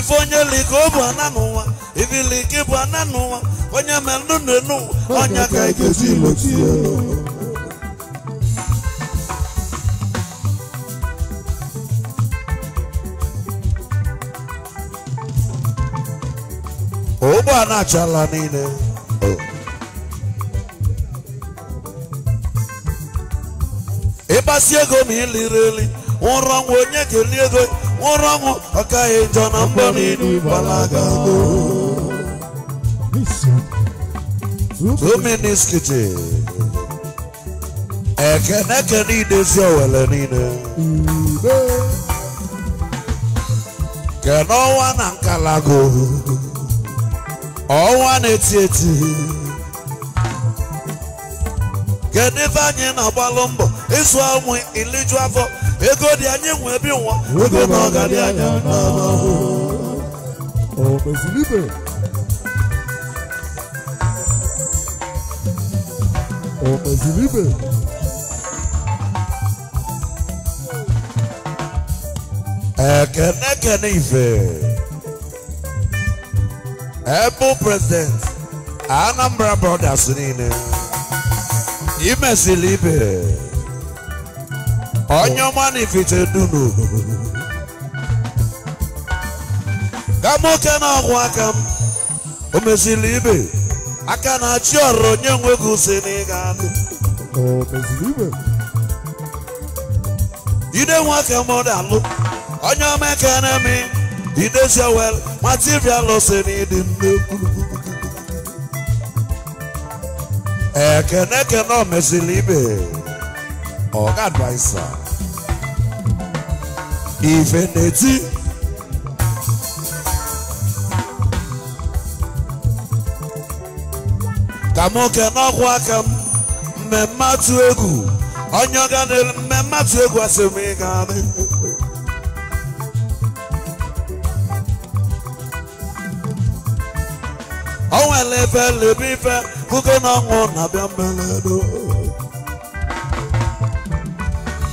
ife onye liko bụ ana n'ụwa ibilike bụ ana n'ụwa onye mere ndụ n'enu ọnya ka ị e ga-esi loti ya ụgbọala achala niile ịgbasi ego ma iliri eli ụrọ nwa onye kelie ego nwụrụ ọgwụ ọ gaghị ịjọ na mbọ n'elu gbalaga two minutes kitchen ekene ekene idezi owele niile kene ọnwa na nkalago ọnwa na-eti eti kedu ife anyị na-agbalụ mbọ ịzụ ụmụ iliju afọ ego dị anyị nwe bi nwa ego na ọ ga dị anya n'ahụ o meziri ibe ekene ekene ife ebu prezident Anambra brothers niile imesili ibe onye ọma na ifite dunu ka nwoke na-akwụ aka m o meziri ibe aka na-achị ọrụ onye nwe gị si n'ịga ide nwoke m dalụ onye ọma ekene mi idezi owel mativialụ si n'ịdị nnekwu ekene ekene o meziri ibe ọ ga-advaisa ka nwoke n'ọkwa aka m mmemme atụ egwu onye ga n'elu mmemme atụ egwu asị m ị gaa n'ihu o nwere ife lebe ife kụkọ na ọnwụ na-abịa mmelelu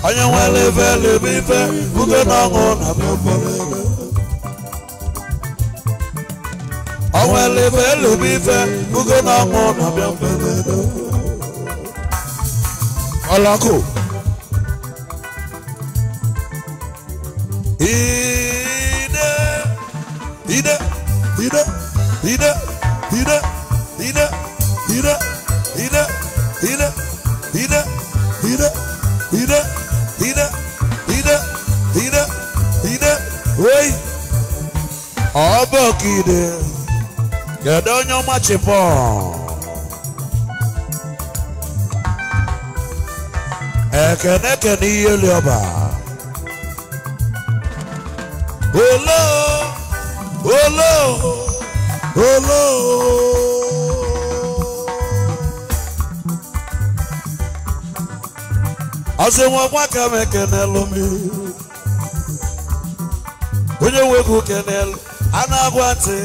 onye nwere ife lebe ife ude na ọṅụ na beforebe onwere ife lebe ife ude na ọṅụ na beforebe ọlọkụ ide ide ide ide ide ide ide ide ide ọ wei ọbọkide kedu onye ọmachipọ ekene kene ihe liọba olo olo olo ọsị nwa gwa ka m ekenelu mmiri onye nwego kenel a na-agwa ntị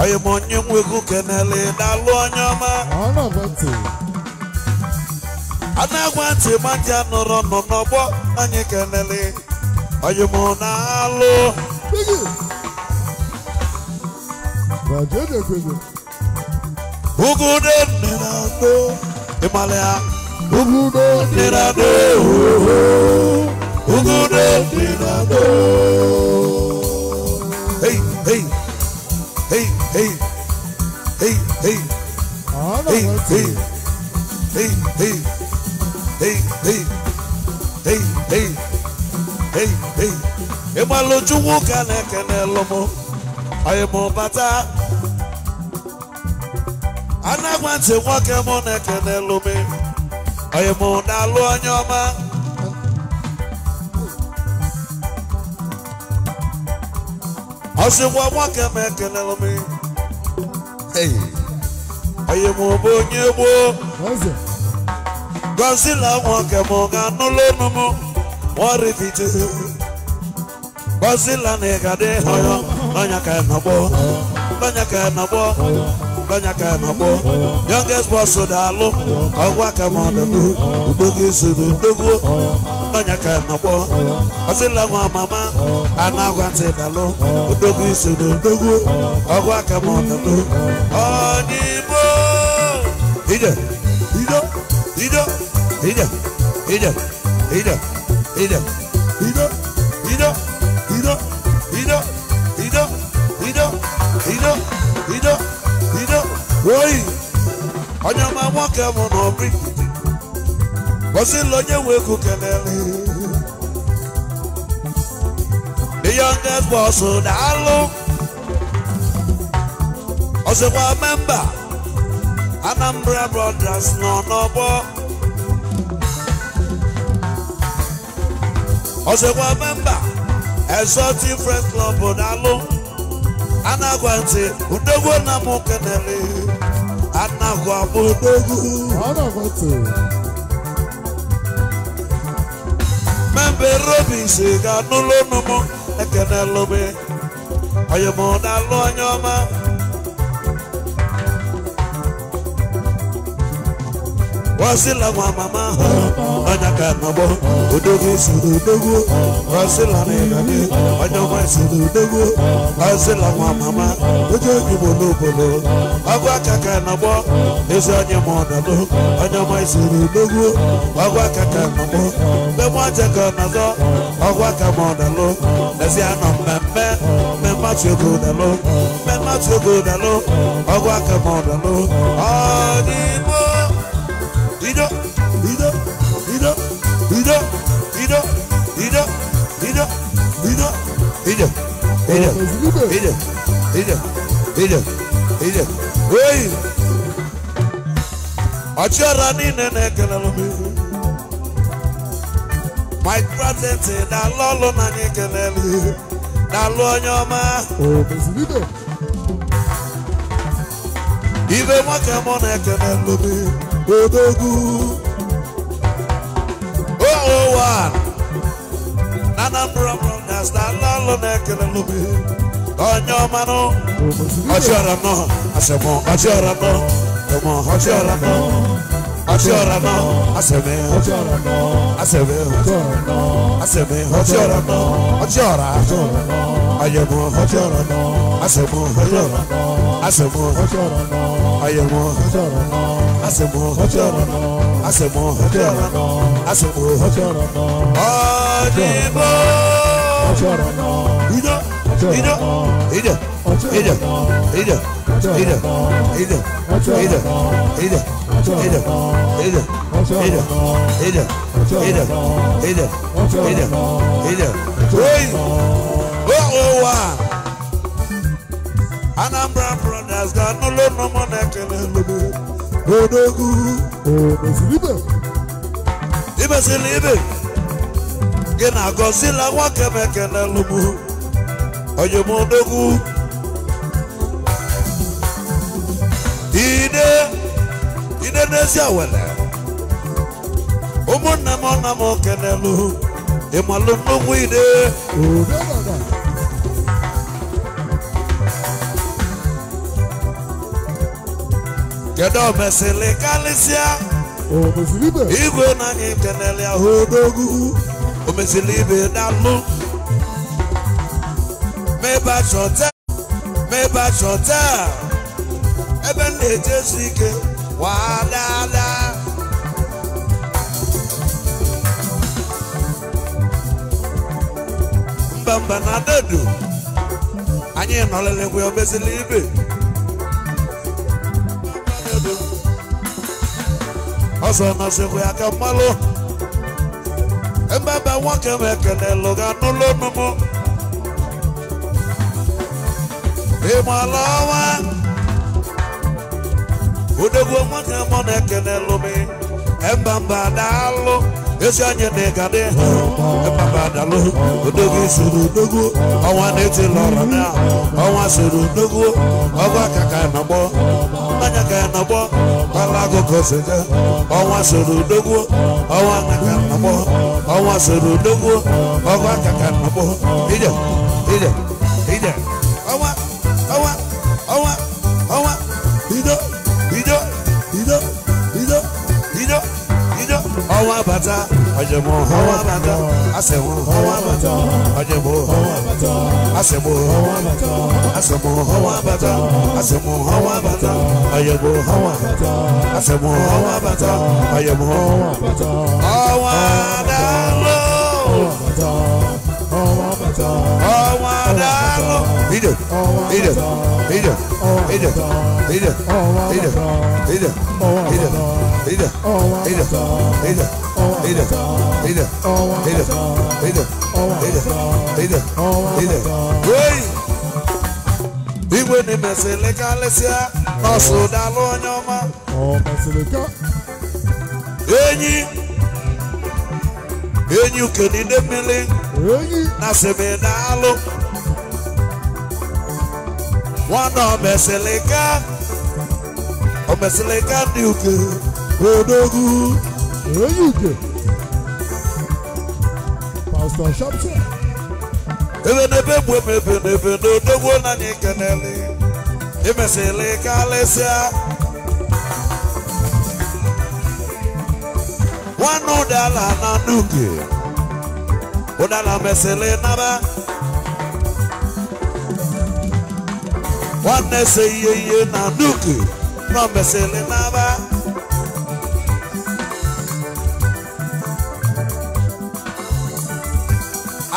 onye ma onye nwego kenel na-alụ onye ọma a na-agwa ntị ma ndị nọrọ nọ n'ọgbọ anyị kenel onye ma na-alụ ugude nnere adọ a. ya ugude nnere adọ ugude dị Hey hey hey hey hey hey hey hey hey hey hey hey hey hey hey hey hey hey hey hey na hey hey hey hey hey anagwa ntị nwoke mụ na-ekene lụm anyị mụ na-alụ onye ọma ọsị nwa nwaka m ga na ịgadị họyọ n'ọnya youngest boss ka mama anagwa ntị dalụ odogwu iso na odogwu ọgwụ aka ma ọdọdọ ọdịbo ije ido ido ije ije ije ije ido ido ido ido ido ido ido ido ido oyi onye ọma nwoke mụ na obi bọsị lọ nye nwe ekwu kelele the youngest boss na-alụ ọzọkwa memba Anambra Brothers nọ n'ọgbọ ọzọkwa memba Exotic Friends Club na-alụ anagwa ntị udogwu na m kenere anagwa m udogwu membe robins ga-anụlụ ụnụ m ekene lụbe I am na na-alụ onye man. wasila nwa mama ha onye ka nọgbọ odogwu isoro odogwu wasila na ịgabi onye nwa isoro odogwu wasila nwa mama oje onyigbo n'obodo ọgụ aka ka nọgbọ ezi onye ma ọdọdụ onye nwa isoro odogwu ọgụ aka ka nọgbọ mgbe nwaje ka ọnọdọ ọgụ aka na ọdọlụ lezi anọ mmemme mmemme atụ ego ọdọlụ mmemme atụ na lo. ọgụ aka ma ọdọlụ ọ dị ọchịọra niile na-ekelelụ m ihu mike na-alụ ọlụ na anyị ekelelụ ihu na-alụ onye ọma ibe nwoke mụ na-ekelelụ m Odogu. Oh, oh, one. Oh. Anambra broadcast, Alalo Nekelelubi. Onyo mano. Ochiora no. Asemo, ochiora no. Emo, ochiora no. Ochiora no. Aseme, ochiora no. Aseme, ochiora no. Aseme, ochiora no. Ochiora. Ochiora no àyẹ̀wò ọjọ́ ọ̀rọ̀ náà àṣẹ̀wò ọjọ́ ọ̀rọ̀ náà àṣẹ̀wò ọjọ́ ọ̀rọ̀ náà àyẹ̀wò ọjọ́ ọ̀rọ̀ náà àṣẹ̀wò ọjọ́ ọ̀rọ̀ náà àṣẹ̀wò ọjọ́ ọ̀rọ̀ náà àṣẹ̀wò ọjọ́ ọ̀rọ̀ náà. ọ̀dìbò ìjọ ìjọ ìjọ ìjọ ìjọ ìjọ ìjọ ìjọ ìjọ Ada, Ada, Ada, Ada, Ada, Ada, Ada, Ada, Hey! ụwa Anambra brothers ga n'ụlọ ụlọma na-ekele ibe gị na gọzila nwoke m ekele lụgbu ide ide n'ezi awele ụmụnne m nna m kelelu ide kedu omesili kalịsịa? igwe na anyị kenere ya odogu omesili ibe dalụ mebach hotel mebach hotel ebe m na-eje ike wadada mba mba na dedu anyị nọlelekwe omesili ibe ọzọ mazikwa ya ka mmalụ mbaba nwoke m ekelelụ ga n'ụlọ ịmụ e ala ọnwa odogwu nwoke mụ na ebe m mbamba alụ ezi anya na ịga dị ịpapa dalụ odogwu soro odogwu ọnwa na-etila ọra na ọnwa soro odogwu ọgwa aka ka nọgbọ mmanya ka nọgbọ kpala agụkọ sega ọnwa soro odogwu ọnwa na ka nọgbọ ọnwa soro odogwu ọgwa aka ka nọgbọ ije ije ije bàtà ọ̀jẹ̀bọ̀ ọwọ́ bàtà àṣẹ̀wọ̀ ọwọ́ bàtà ọ̀jẹ̀bọ̀ ọwọ́ bàtà àṣẹ̀bọ̀ ọwọ́ bàtà àṣẹ̀bọ̀ ọwọ́ bàtà àṣẹ̀bọ̀ ọwọ́ bàtà ọ̀jẹ̀bọ̀ ọwọ́ bàtà àṣẹ̀bọ̀ ọwọ́ bàtà ọ̀jẹ̀bọ̀ ọwọ́ bàtà ọwọ́ dàlọ́ ọwọ́ bàtà ọwọ́ dàlọ́ ìdè ìdè ìdè ìdè ìdè ìdè ìdè ìdè ìdè ìdè ìdè. Igwe na emesịrị karịsịa ọsụ dalụ onye ọma. Enyi enyi ukenide mmiri na Nwana uke odogu. Eluke. Pastor Shamsa. Ebe n'ebe bụ ebe ebe n'ebe n'odogwo na anyị na nuke. Ụdala mesịla na nuke.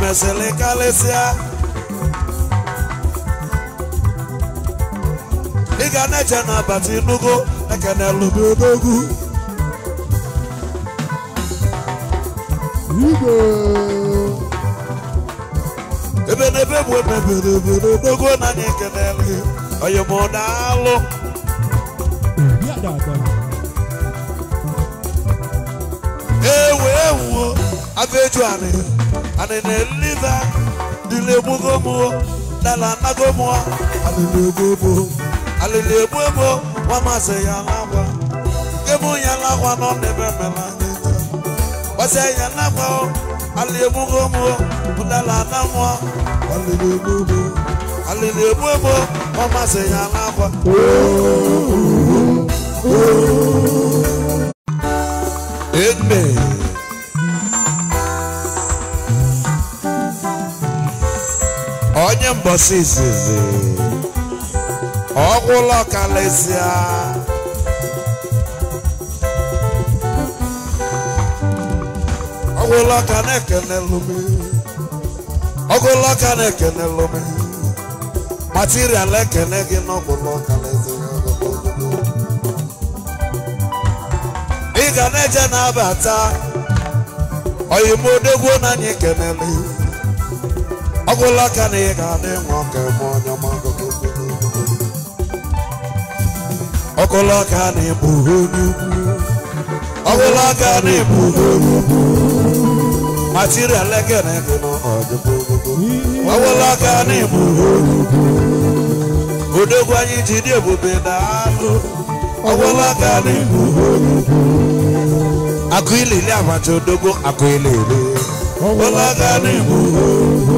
mesịrị karịsịa ị ga na-eche na abata inugo ekenelubodogwu ebe n'ebe bụ emebere obodo dogo na anyị ekenele oyimodalụ ewe ewuo abụ eju anị anị na ita dịla egbugo m dala anago m alịlegbuegbo ya n'akwa ya nọ n'ebe ya dala ana onye mgbasa izizi ọgwụlọ kalịsịa ọgwụlọ ka na-ekenelumi ọgwụlọ ka na-ekenelumi material ekene gị n'ọgwụlọ kalịsịa ị ga na-eje na-abata oyimodogwu na anyị kenele ọ bụla ka na ị ga-adị nwa ka ebe onye ọkụla ka na ịbụ onye ukwu ọbụla ka na ịbụ onye ukwu material ekene gị n'ọdịbụ ọbụla ka na ịbụ onye ukwu odogwu anyị ji dị ebube na anụ ọbụla ka na ịbụ onye ukwu akụ ilili abacha odogwu akụ ilili ọbụla ka na ịbụ onye ukwu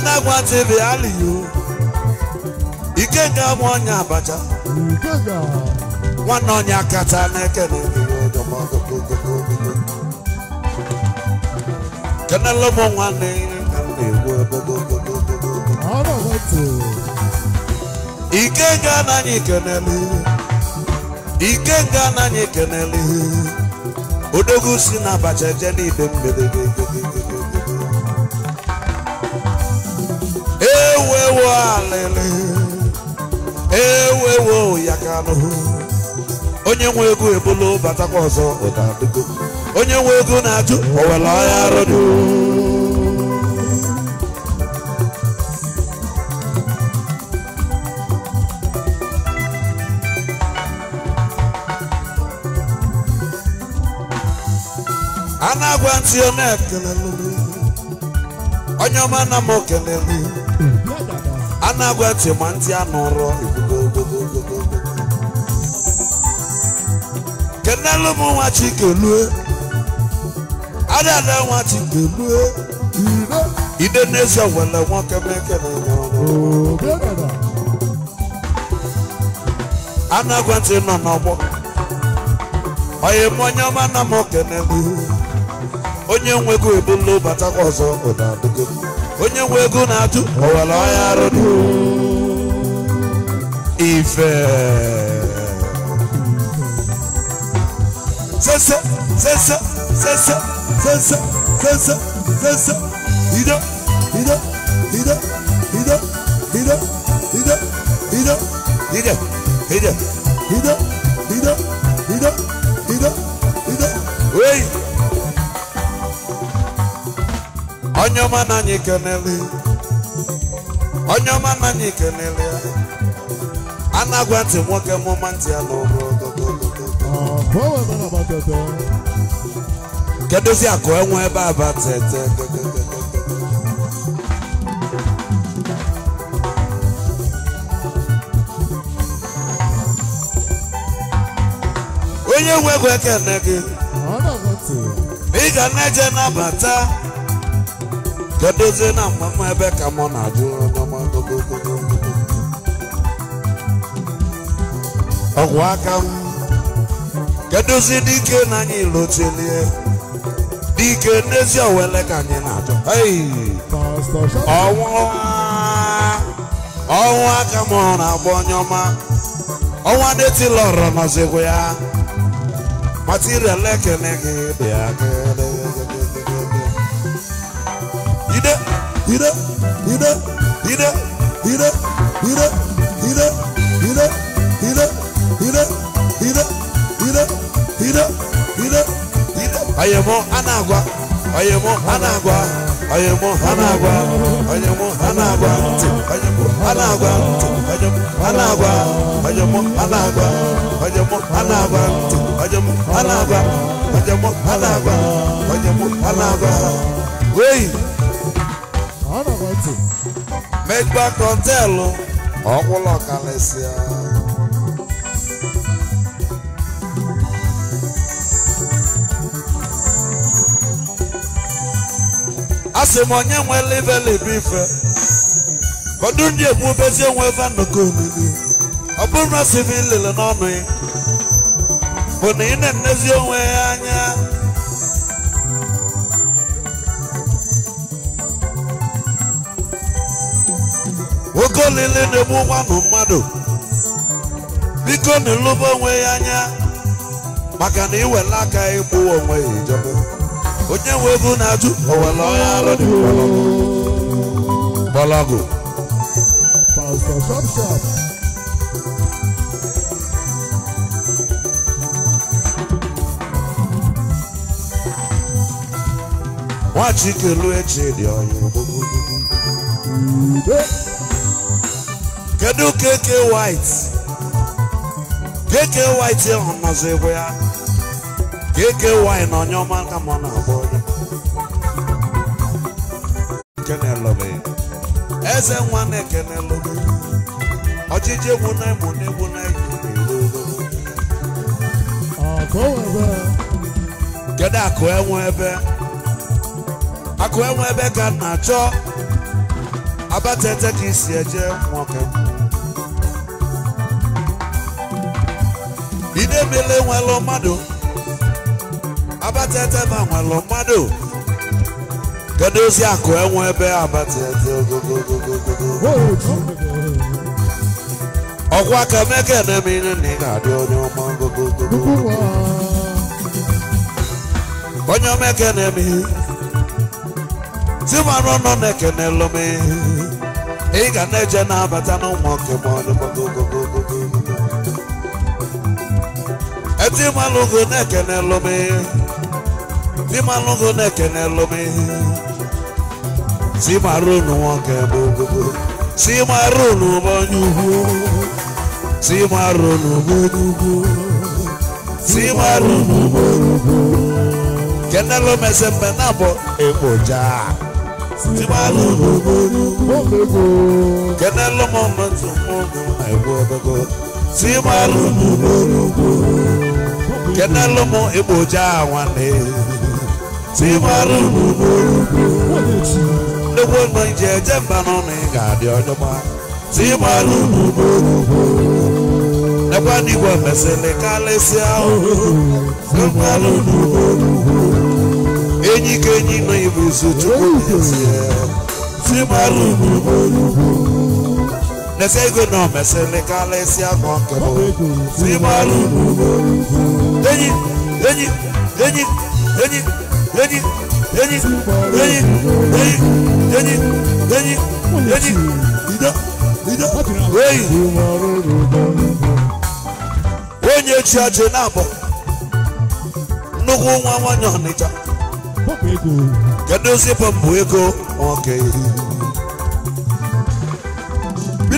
Anagwa TV aliyo Ikenga mwanya abacha Ikenga Nwanne onye akata na-ekele kenele m nwanne ka m na-egwu ike ga anaghị ekenele ike ga anaghị ekenele odogwu si na abacha eje n'ibe mberede ewo alịlị ewo ewo ya kanụ onye nwe ego ebulu batakwa ọzọ ụdadịgo onye nwe ego na-ajụ owele ọhịa arụdụ a na-agwa ntị ọ na-ekelelu onye ọma na m okelelu anagwa ntị ma ntị anọrọ kenelu m nwa chikelue adada nwa chikelue ide n'eze wele nwoke mekele anagwa ntị nọ n'ọgbọ onye m onye ọma na m okenelu onye nwego ebolo batakwa ọzọ ụdadụ onye nwe ego na-atụ owere ọhịa arụdụ ife sese sese sese sese ido ido ido ido ido ido ido ido onye ọma na anyị kenele onye ọma na anyị kenele a na-agwa ntị nwoke mụma ntị ya n'ụlọ kedozi akụ enwe ebe aba tete onye nwe ego ekene gị ị ga na-eje nabata gedozi na mgbaama ebe ka mụ na-ajụ ọgwụ aka m kedozi dike na anyị lotelie dike n'ezi owele ka anyị na-ajụ ọnwụ aka m hụrụ na-agba onye ọma ọnwa detilọrọ nọzikwa ya material ekene gị dị hit up, hit up, hit up, hit up, hit up, hit up, hit up, hit up, hit up, hit up, hit up, hit up, hit up, hit up. I am on Anagua, I am on Anagua, I am on Anagua, I am on Anagua, I am on Anagua, I am Anagua, I am on Anagua, I am on Anagua, I am on Anagua, I am on Anagua, I am on Anagua. Wait. Bedbug Hotel ọkwụlọ kalịsịa asị m onye nwe liveli bụ ife ọdụ ndị egbubezi enwe ebe nnọkọ olili ọ bụrụ na asị m ilele n'ọnụ ya bụ na ị na-enezi onwe ya oke olili na-egbu nwanụ mmadụ biko na ịlụba onwe ya anya maka na iwele aka ịgbụ onwe ya ijebe onye nwe ego na-ajụ owele onye arụ dị mgbọlọgụ nwachikelu echi dị ọya kedu KK White KK White ahụ nọzọ ebe ya KK White na onye ọma aka ma ọ na-abụ onye eze nwa na-ekenelụbe ọchịchị egwu na egbu na egwu na egwu kedu akụ enwe ebe akụ enwe ebe ka na-achọ abatete ka isi eje nwoke idebele nwelụ mmadụ abatete ma nwelụ mmadụ kedu ozi akụ enwe ebe abatete ogogogogogogoo ọkwa ka meke nemire na ị ga-adị onye ọma gogogogogogo onye omeke na-eme timanụ nọ na-ekenelụ m ị ga na-eje na-abata n'ụmụ nke ma ọdịgogogo etimalụgo na Ti m timalụgo na-ekenelụ m timarunu nwoke bụ ogogo timarunu bụ onye ugwu timarunu bụ onye ugwu timarunu bụ onye ugwu kenelụ m esembe na bụ ekpoja timarunu bụ onye ugwu kenelụ m ọmụ ogogo kenelụmụ igboja nwanne si mara unu n'ugwu nnekwu nọ iji eje mba n'ụlọ ị ga-adị ọjọgba si mara unu n'ugwu nekwa n'igwe mesịrị karịsịa ahụhụ si mara unu n'ugwu enyi ka enyi nọ ibuzu chukwu n'ezie si mara unu n'ugwu Nese ego na omesele kalesi akọ nke bụ sibalu enyi enyi enyi enyi enyi enyi enyi enyi enyi enyi enyi ido ido oyi onye chi ọjị na-abọ nnukwu nwa nwanyị ọnịcha kedu zipụ mbụ ego nwoke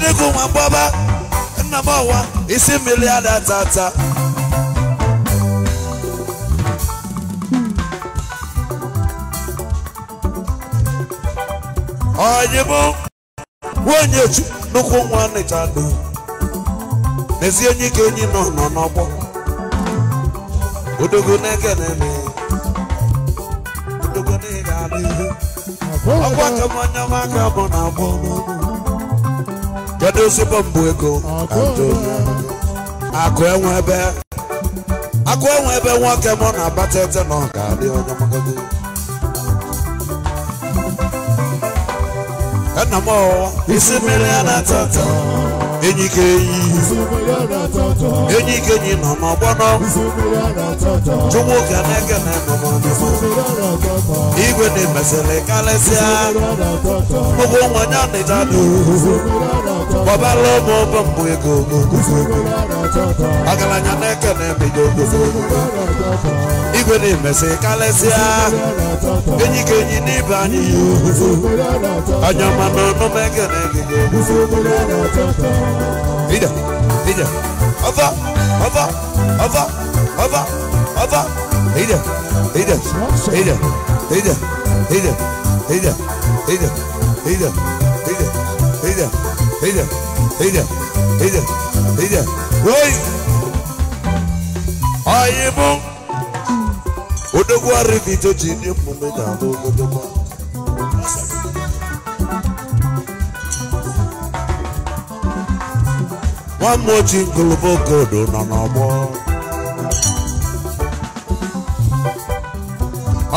chineke nwa mgbaba nna m ọwa isi mmiri ada tata onye bụ nwunye nnukwu nwa nịcha do n'ezi onye ike onye nọ nọ n'ọgbọ odogo na-ekene odogo na-ega n'ihu ọgbọ ka mmanya maka bụ na agbọ n'ọnụ kedu ezigbo mbụ ego akụ enwe ebe akụ enwe ebe nwoke mụ na-abata ete na ọ ga-adị onye magago nna m isi mmiri a na-atọ enyi ka enyi enyi ka enyi nọ n'ọgbọnọ chukwu ka na-eke na enụmọdụmọ igwe na-emesịrị karịsịa ụgwọ nwanyị ọnịdadụ ọbala ụmụ ụbọ mbụ ego ọgaranya na-eke na-ebido igwe na-emesị karịsịa enyi ka enyi n'ibe anyị anya mana ọnụ na-eke na-egide ije ọba ọba ọba ọba ọba ije ije ije ije ije ije ije ije ije ije Eita, eita, eita, eita. Oi! Aí, bom. O dogo arrivito de nemo me dá do do do. Nwanne oji ngolobogodo nọ n'ọgbọ.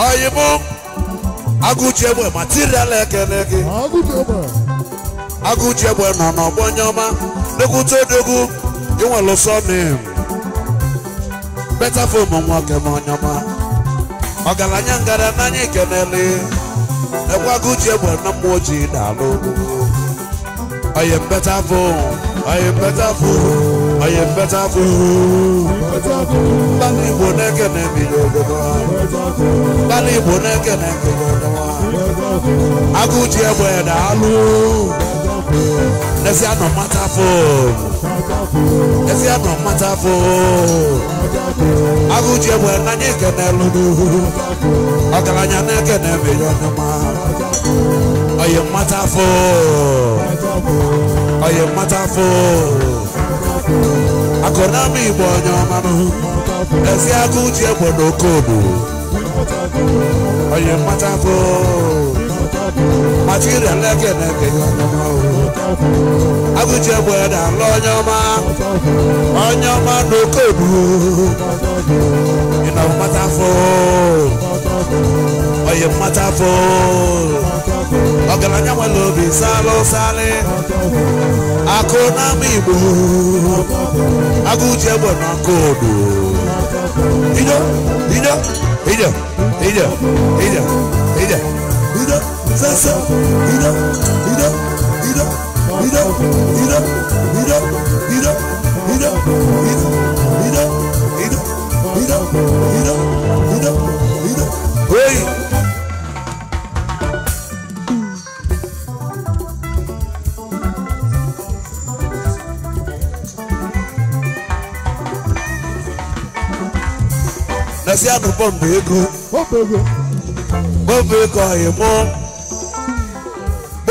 Oyibo, agụji egbe ma tiri ekele gị. Agụchi egbe nọ n'ọgbọ onye ọma dokwute odogwu inwere ụsọ nem beta fom nwoke m onye ọma ọgaranya ngara n'anya ikenele ekwe Agụchi egbe na mmụọ ojii na-alụ oye beta fom oye beta fom oye beta fom mgbali igbo na-ekene ebido ogodo mgbali igbo na-ekene ebido ogodo Agụchi egbe na-alụ Esi anọ mata fo. Esi anọ mata fo. Agụji egbe n'anya ekene lụrụ. Ọgaranya na-ekene mmiri ọnụma. Oyi mata fo. Oyi mata fo. Akọnami Igbo onye ọma nụ. Esi agụji egbe n'okodo. Oyi mata fo màtí rẹ̀ lẹ́gẹ̀dẹ̀gẹ̀ yọ ọmọ òwò agùjẹ bọ̀ẹ̀dà lọ́nyọ́má ọnyọ́má n'okodu ìnà mmata fọ́ ọyẹ mmata fọ́ ọ̀gànànyà nwere obi sálọ sálẹ akụ n'ama igbo agụjẹ bọ̀ n'okodu ijọ ijọ ijọ ijọ ijọ ijọ ijọ. sensação. Irão, irão, irão, irão, irão, irão, irão,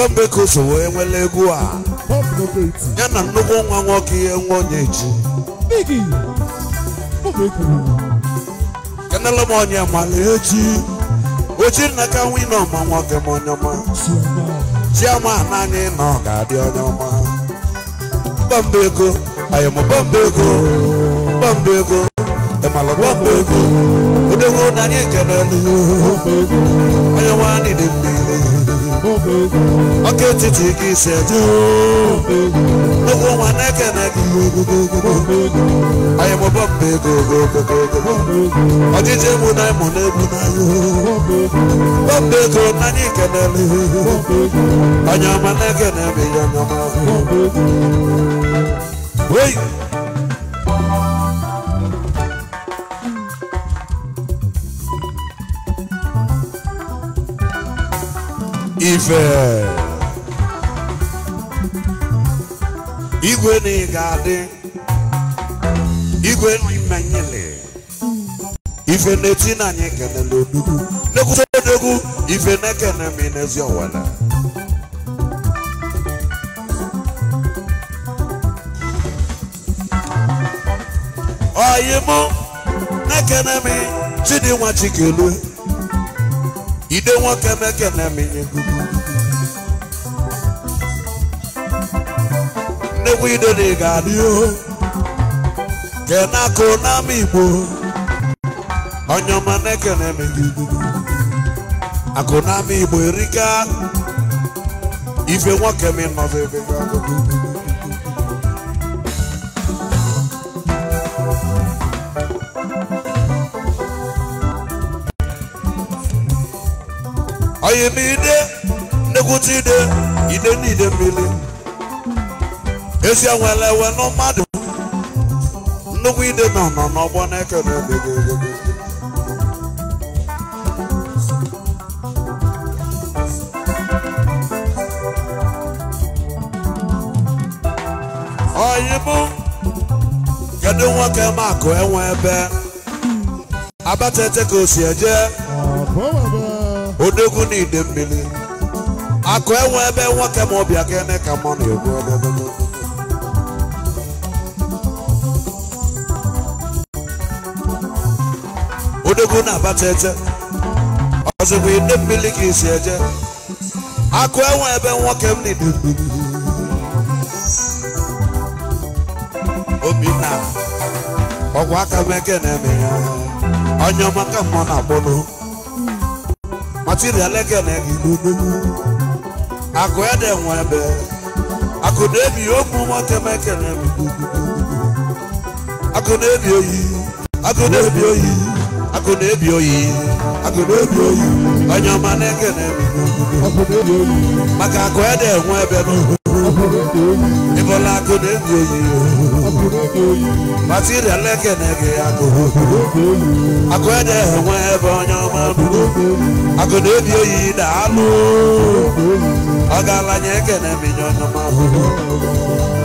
Mberembeko so wee nwere egwu a ya na nnukwu nwa nwoke ihe nwa onye echi kenele m onye mala echi ochi na ka nwa ịnọ ma nwoke m onye ọma chiama naanị nọ ga-adị onye ọma Mberembeko ayọmọ Mberembeko Mberembeko ịmalụ Mberembeko odewo na anyị ekelelu onye nwa anyị dị mmiri ọkụ etiti gị si eje ogwu nwa na-ekene gị anyị mụbọ mba ego ọjịji egbu na ịmụ na-egbu n'anya mba ego n'anya ikenele onye ọma na-ekene m ihe onye ọma ife igwe na ịga ga-adị igwe na nyele ife na-eti na anyị kenele odugwu nekwute odogwu ife na-ekene m inezi ọwala ọyịmụ na-ekene m chidinwa chikelue ide nwoke na-ekene m inye gugu nnekwu idode ga-adị kenaka n'ama igbo onye ọma na-ekene megide akụ n'ama igbo erika ife nwoke mi nọdụ ebe onye m ide nnekwuta ide ide n'ide mmiri ezi enwere ewe na nnukwu ide nọ nọ n'ọgbọ na-ekele kedu nwoke makụ enwe ebe ka o si eje odogwu na ide mmiri akụ enwe ebe nwoke ma ọbịa kene ka egwu ebe akụ na-abata ete ọzọkwa ide mmiri ka eje akụ enwe ebe nwoke m Obi obinna ọgwụ aka m eke na-eme ya onye ọma ka na-akpọnụ material eke na-ege akụ dị ebe akụ na-ebi ogbu nwoke m eke na-eme akụ na-ebi oyi akụ na-ebi oyi onye ọma na-ekene maka akụ ede enwe ebe ịbụla akụ na-ebi oyi akụ na oyi ekene gị akụ akụ ede enwe ebe onye ọma akụ na-ebi oyi daalụ ọ gaala nye ekene m inye onye ọma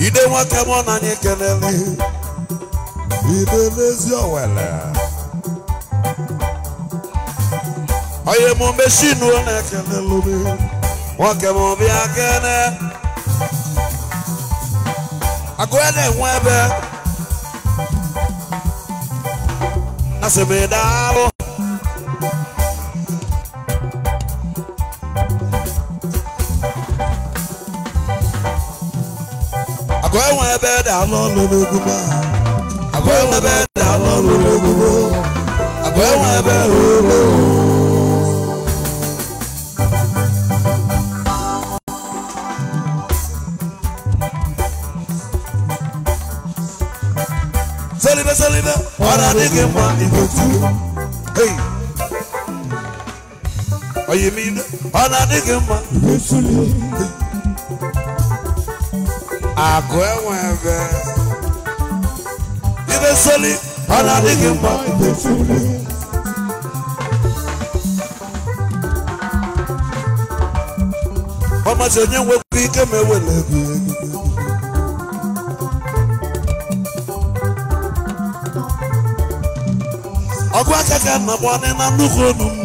Ide nwoke mụ na anyị kelele idebe ezi owele onye na-ekelelụmi nwoke m bịa kene agụ ya na-enwe ebe asị m daalụ agụ enwe ebe daalụ ọlụ n'egwu àbẹ̀wọ̀n ẹbẹ̀ dáná lórí gbogbo àbẹ̀wọ̀n ẹbẹ̀ lórí. sẹ́lẹ̀bẹ̀ sẹ́lẹ̀bẹ̀ ọ̀rọ̀ adigun ma ìgbòtú. ọ̀yẹ̀ mi esoli ọ na-adịghị mma mgbe ọ masị onye nwekwu ike ma ewele ego ọgụ aka ka nna na nnukwu onu m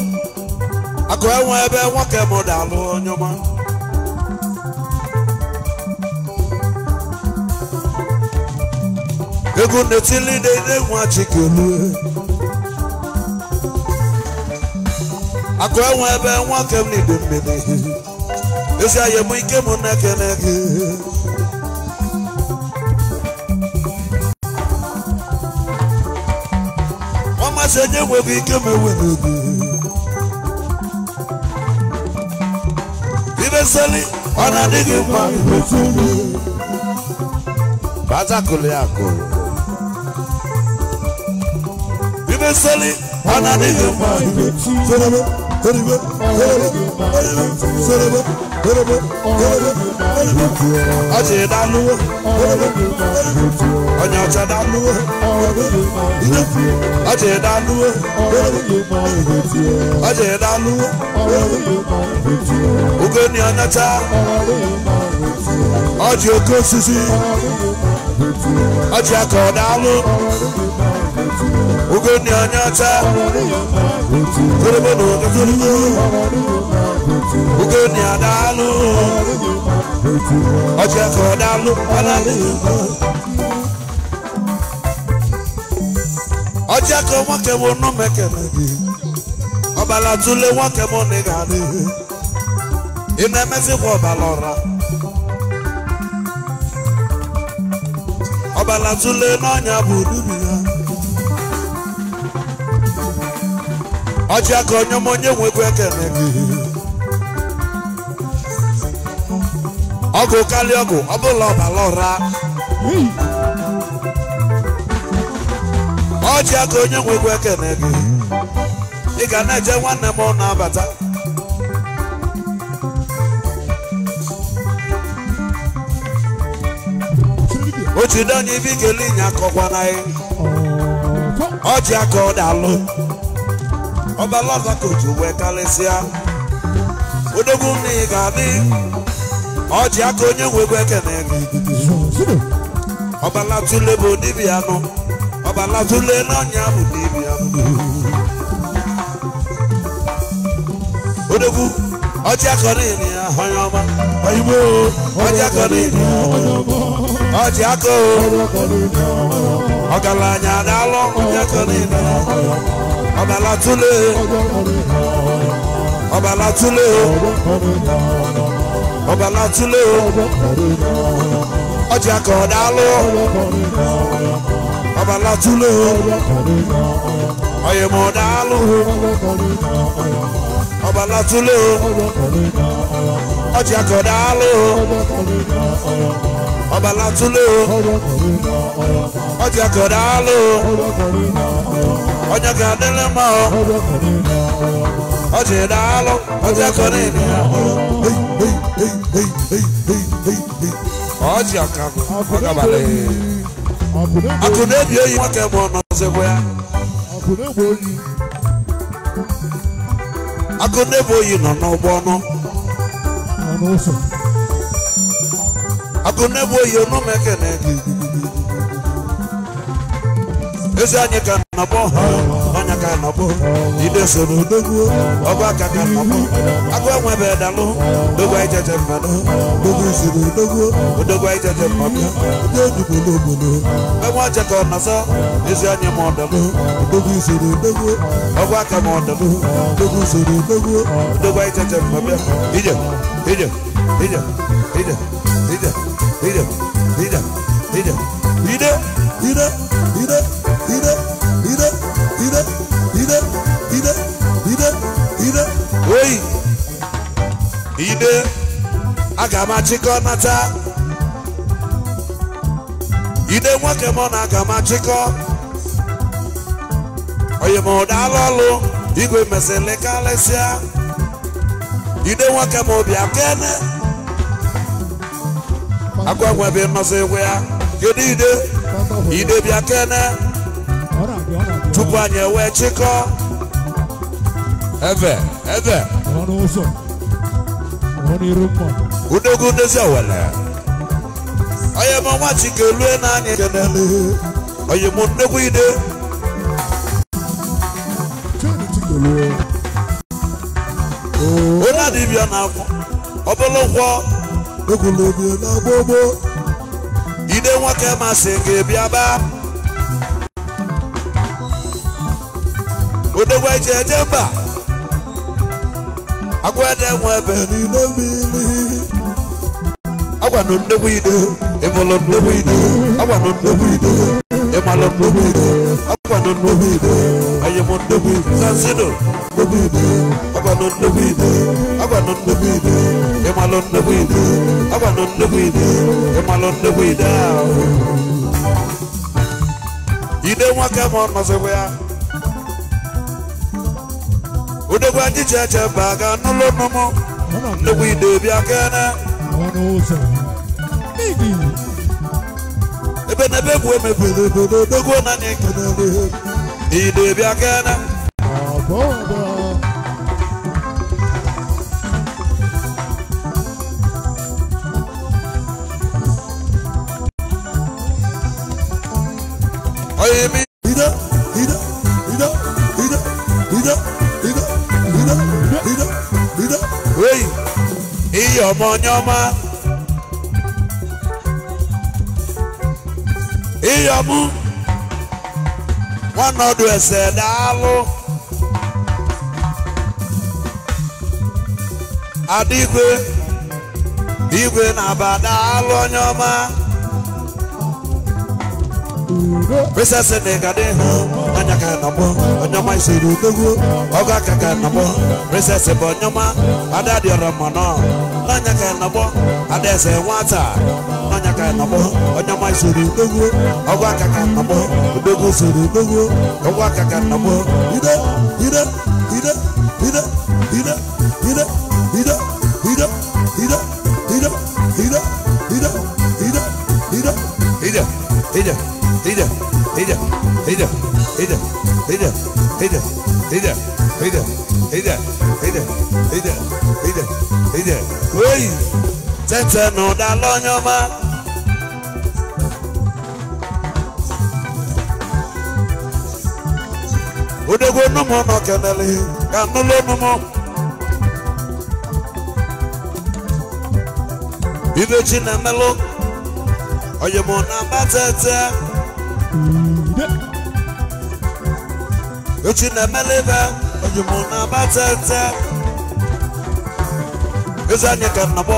akụ enwe ebe nwoke m dalụ onye ọma ego netili dede nwachikelu e. akụ enwe ebe nwa kem na ido mmiri ezi ahịa m ike m na-ekene gị ọmasị onye nweghị ike m enwere gị ibeseli ọ na-adịghị mma ibeseli bazakụlụ ya akụrụ fẹ́ ananı, anani yóò máa dùn. sọ̀rọ̀bọ̀ kẹrìbọ̀ kẹrìbọ̀ kẹrìbọ̀ sọ̀rọ̀bọ̀ kẹrìbọ̀ kẹrìbọ̀ kẹrìbọ̀ ọ̀jẹ̀ ìdánuwó kẹrìbọ̀ kẹrìbọ̀ ọ̀nyà ọ̀jẹ̀ ìdánuwó kẹrìbọ̀ ọ̀jẹ̀ ìdánuwó kẹrìbọ̀ ọ̀jẹ̀ ìdánuwó kẹrìbọ̀ ugoni anyata orobodo kazorobo ugoni adalu ọjọ ẹkọ dalu alali ọjọ ẹkọ wọn kẹwọn nù mẹkẹmẹ bi ọbala tule wọn ọbala ọra ọbala n'ọnya bụ dubi ya. ọjị aka onye m onye nwekwa ekele gị ọgụ kalị ọgụ ọ bụla ọbara ụra ọjị aka onye nwekwa ekele gị ị ga na-eje nwanne m na-abata otu dị onye ibe ikele ịnya akọkwana ọjị aka ọ ọbalaza kotu wee karịsịa odogwu nna ị ga-adị ọjị akọ onye nwegwu ekene ọbalatule bụ dibịa nụ ọbalatule n'ọnya bụ dibịa nụ odogwu ọjị aka niile ya ọma oyigbo ọjị ọma ọba látúlé ọba látúlé ọba látúlé ọjà kan dálọ ọba látúlé ọyẹmọ dálọ ọba látúlé ọjà kan dálọ ọba látúlé o ọjà kọ̀dá lò ó ọjà kàdélé mọ́ ọ ọjà ìdá lọ ọjà kọ̀dá ènìyàn ọjà kàkọ́ ọjà balẹ̀ akùnrin èdè yìí wọ́n tẹ̀ bọ̀ ọ̀nà ọ̀sẹ̀kọ̀ ya. akùnrin èbò yìí nọ̀ n'ọgbọ́n náà. akụ na-ebu oyi eke na gị ezi anyị ka nọbọ ọnya ka nọbọ ide soro odogwu ọgụ aka ka nọbọ agụ enwebe dalụ dogwa ijeje mmadụ dogwu soro odogwu odogwa ijeje mmadụ ndị odugbolo obodo enwe ọje ka ọnọzọ ezi anyị ma ọdalụ odogwu soro odogwu ọgụ aka ma ọdalụ dogwu soro odogwu odogwa ijeje mmadụ ije ije Ide, ide, ide, ide, ide, ide, ide, ide, ide, ide, ide, ide, ide, ide, ide, ide, oyi. Ide, aga m Ide nwoke m na aga m achịkọ. Oyi m ụdala ọlụ, igwe mesịlị karịsịa. Ide nwoke m bịa akwa nwebe mmasị ịgwụ ya kedu ide ide bịa kene tupu anyị ewee chịkọọ eve eve udogwu ndezi owele onye m ọnwa chike lue na anyị kenele onye m nnekwu ide onye adịbịa na ọ bụrụ nkwọ ogologo na gbogbo ide nwoke masị gị bịaba odogwu eji eje mba agwede nwe ebe niile mmiri agwanụ ndegbu ide ịmụlụ ndegbu ide agwanụ ndegbu ide ịmalụ ndegbu ide agwanụ ndegbu ide ayịmụ ndegbu ide zanzido ndegbu ide agwanụ ndegbu ide agwanụ ndegbu ịmalụ nnukwu ibu agwanụ nnukwu ibu ịmalụ nnukwu ide ahụ ide nwoke ma ọ ya odogwu anyị ji eche mba ga n'ụlọ nnụnụ nnukwu ide bịa kene ebe na ebe egwu emebiri obodo ike na adịghị ide bịa kene baby. Ida, Ida, Ida, ọmọ ọmụ. ese daalụ. Adịgwe, igwe na-aba daalụ onye ọma. Princess Nega de Anyaka Nabo, Anyama Isiru Gugu, Oga Kaka Nabo, Princess Bonyama, Adadi Ramana, Nanyaka Nabo, Adese Wata, Nanyaka Nabo, Anyama Isiru Gugu, Oga Kaka Nabo, Gugu Hida, Hida, Hida, Hida, Hida, Hida, Hida, Hida, Hida, Hida, Hida, Hida, Hida. Oi, tete no da lonyoma. Odego numo no kenele, kanulo numo. Ibechi na melo, oyemo na batete. echi na-emelebe onyimo na-agbatete ezi anya ka nnabọ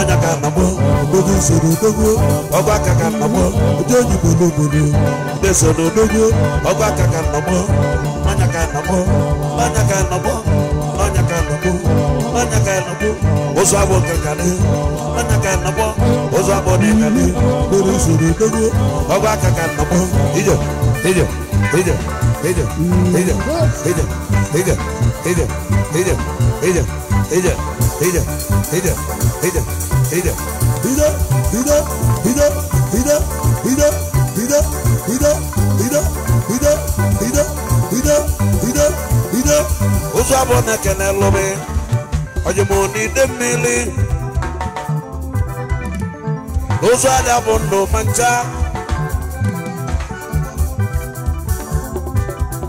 anya ka nnabọ odogo usoro odogo ọgụ aka ka nnabọ ndị onyigbo n'obodo ndị soro odogo ọgụ aka ka nnabọ anya ka nnabọ anya ka nnabọ anya ka nnabọ anya ka nnabọ ụzọ abụ nke karị anya ka nnabọ ụzọ bụ dị ka usoro dogo ọgwụ aka ka nnọkpọ ije ije ije ije ije ije ije ije ije ije ije ije ije ije ije ide ide ide ide ide ide ide ide ide ide ide ide ide ụzọ bụ na ekene lụbi ọjụmụ na mmiri ụzọ ada bụ ndụ ma ncha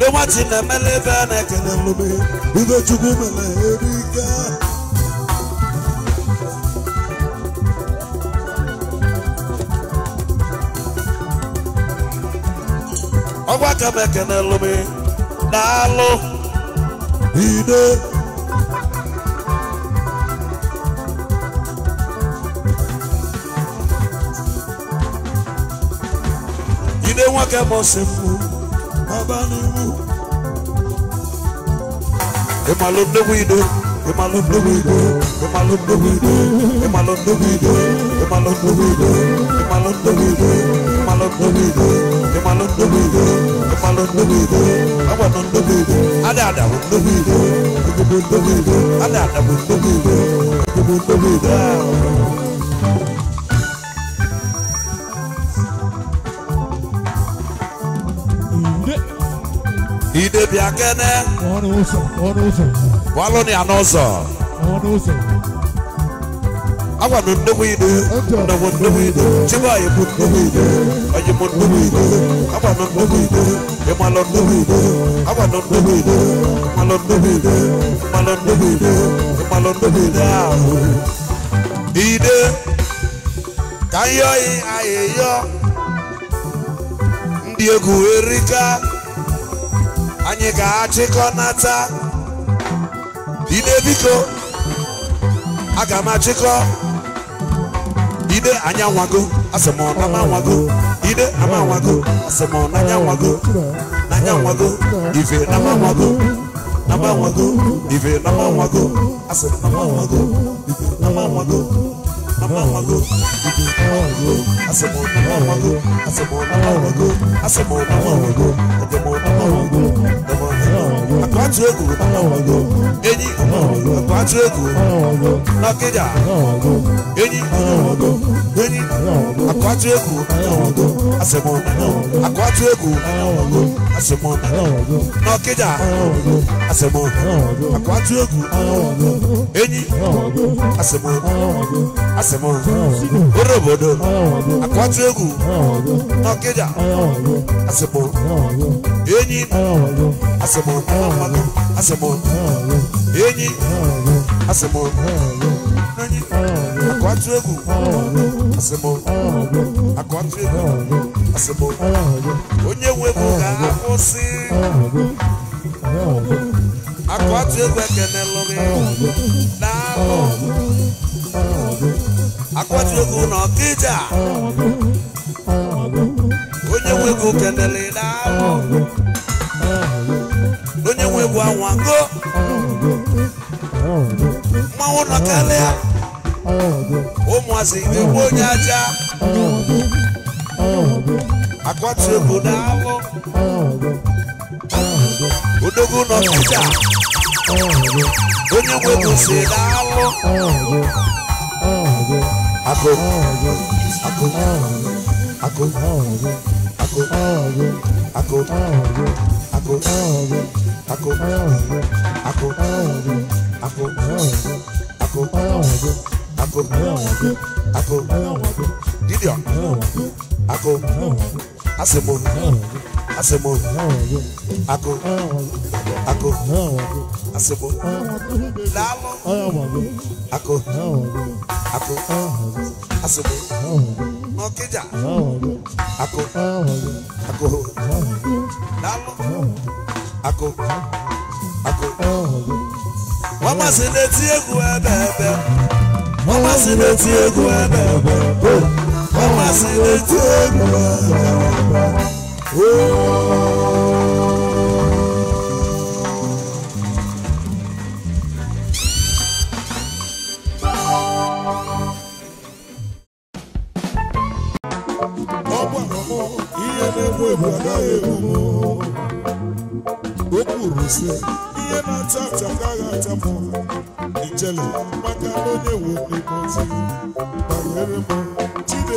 ịnwachi na-emela ebe a na-ekele nlume ibe chukwu mere ebe ike ọgwa ka m ekele na alụ ide wọn kẹ mọ sẹpọ bàbá ni wù. ìmọ̀ ló dé wíìdó ìmọ̀ ló dé wíìdó ìmọ̀ ló dé wíìdó ìmọ̀ ló dé wíìdó ìmọ̀ ló dé wíìdó ìmọ̀ ló dé wíìdó ìmọ̀ ló dé wíìdó ìmọ̀ ló dé wíìdó ìmọ̀ ló dé wíìdó ọgbà ló dé wíìdó adé àdàbò dé wíìdó ìdìbò dé wíìdó adé àdàbò dé wíìdó ìdìbò dé wíìdó. abịakene ọnụ ụzọ ọnụ ụzọ walụ ya n'ụzọ ọnụ ụzọ agwa m nnukwu ido ndọgbu nnukwu ido chibuanyị bụ nnukwu ido onye m nnukwu ido agwa m nnukwu ido ịmalụ nnukwu ido agwa m nnukwu ido ịmalụ nnukwu ido ịmalụ nnukwu ido ịmalụ nnukwu ido ahụ ide ka nyọghị anyị yọ ndị egwu erika anyị ga-achịkọnata ide biko aga m achịkọ ide anyanwago anwago asị m ide ama anwago asị m nanya anwago ife nama anwago nama anwago ife nama anwago asị nama anwago ife nama anwago amawago ije amawago asemo amawago asemo amawago asemo amawago edemo amawago edemo amawago akwatu egu amawago enyi amawago akwatu egu amawago n'ọkịja amawago enyi amawago enyi amawago akwatu egu amawago asemo amawago akwatu egu amawago àṣemọ nọkíjà àṣemọ àkọ́tù ògùn eyín àṣemọ àṣemọ oròbòdò àkọ́tù ògùn nọkíjà àṣemọ eyín àṣemọ àṣemọ eyín àṣemọ nọyín àkọ́tù ògùn àṣemọ àkọ́tù ògùn. nsogbu onye nwebu ga-akwụsị akụ atụ egwu ekene lụrị daalụ akụ atụ egwu na ọkịja onye nwebu kenele daalụ onye nwebu anwango mmanwụ nọkarịa ụmụazị igbo onye aja akwati egwu n'agwọ odogwu n'ọkụda onye nwe gosi n'alụ akụ akụ akụ akụ akụ akụ akụ akụ akụ akụ akụ akụ akụ dibịa ako asemo asemo ako ako asemo lalo ako ako asemo ọkẹjà ako ako lalo ako ako wọ́n má sì létí egun ẹ̀ bẹ́ẹ̀ bẹ́ẹ̀ wọ́n má sì létí egun ẹ̀ bẹ́ẹ̀ bẹ́ẹ̀ ọmọ sì retí èmi àjàgbá. ọgbà iye na-egbu egbu agaghị egbu m o na-ata ata agaghị ata m ijele maka na onye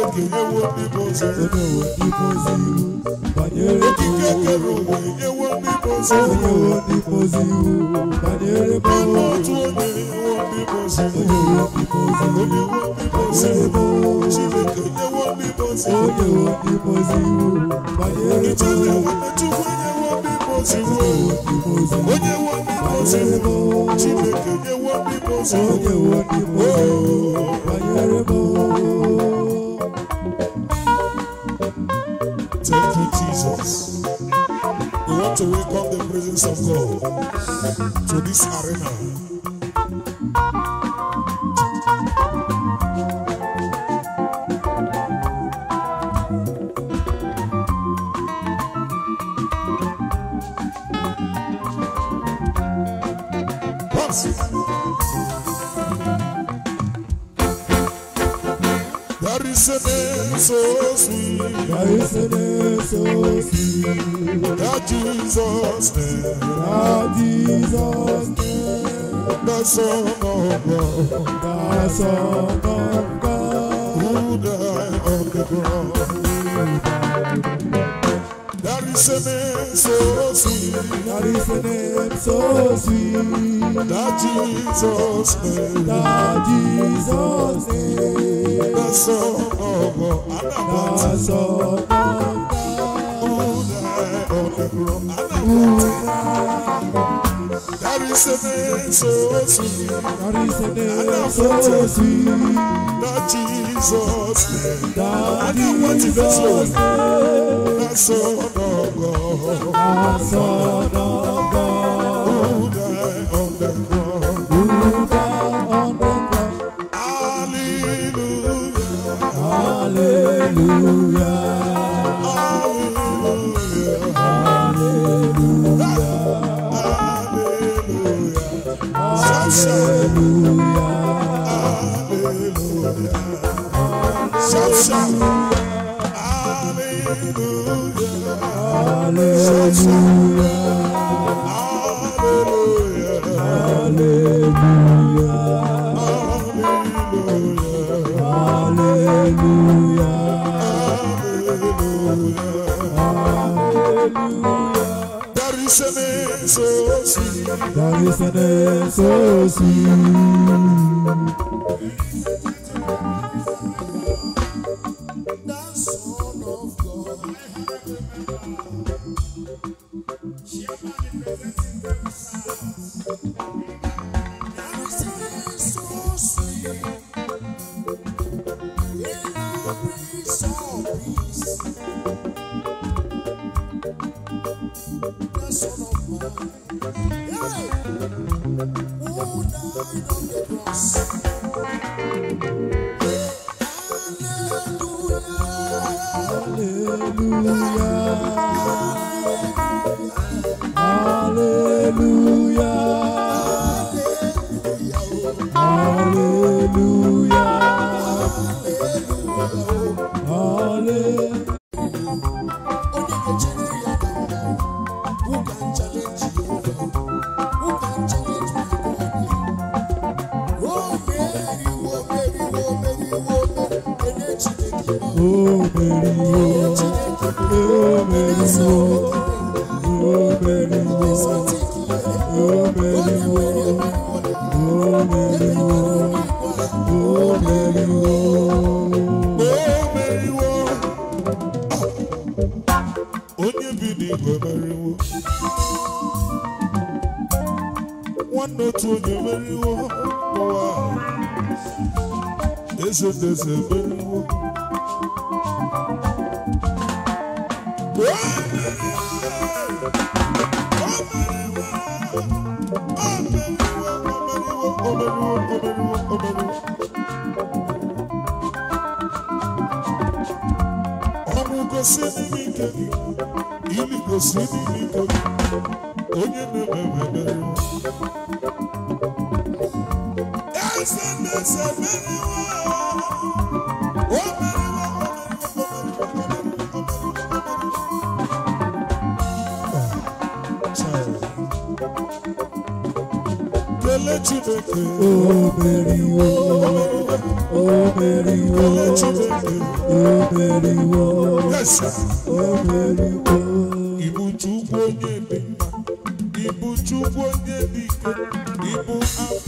okike kere ewo mmiri ozo onyewo n'ime ozi iwu banyere okike kere ụwa enyewo mmiri ozo onyewo n'ime ozi iwu banyere mmanwụ otu onye ewo mmiri ozo onyewo n'ime ozi iwu onyewo n'ime ozi iwu chineke enyewo mmiri ozo onyewo n'ime ozi iwu banyere mmanwụ chukwu enyewo mmiri ozo onyewo n'ime ozi iwu chineke enyewo mmiri ozo onyewo n'ime ozi iwu banyere mmanwụ Jesus. We want to welcome the presence of God to this arena. Thank Isn't so sweet? Yeah, isn't it so sweet? That Jesus name. That Jesus name. The Son of God. The Son of God. Who died on the cross. That is a name so sweet. That is a name so sweet. That Jesus name. That Jesus name. That Son that's alábọ̀ ti sọ. Dari sene sosi, dari sene Jesus That is na name, na son shout. Hallelujah. Hallelujah. Hallelujah. Hallelujah. Hallelujah. Hallelujah. Hallelujah. There is an name so sweet. There is an name so sweet. Ibu chukwu onye dị ike, ibu afọ.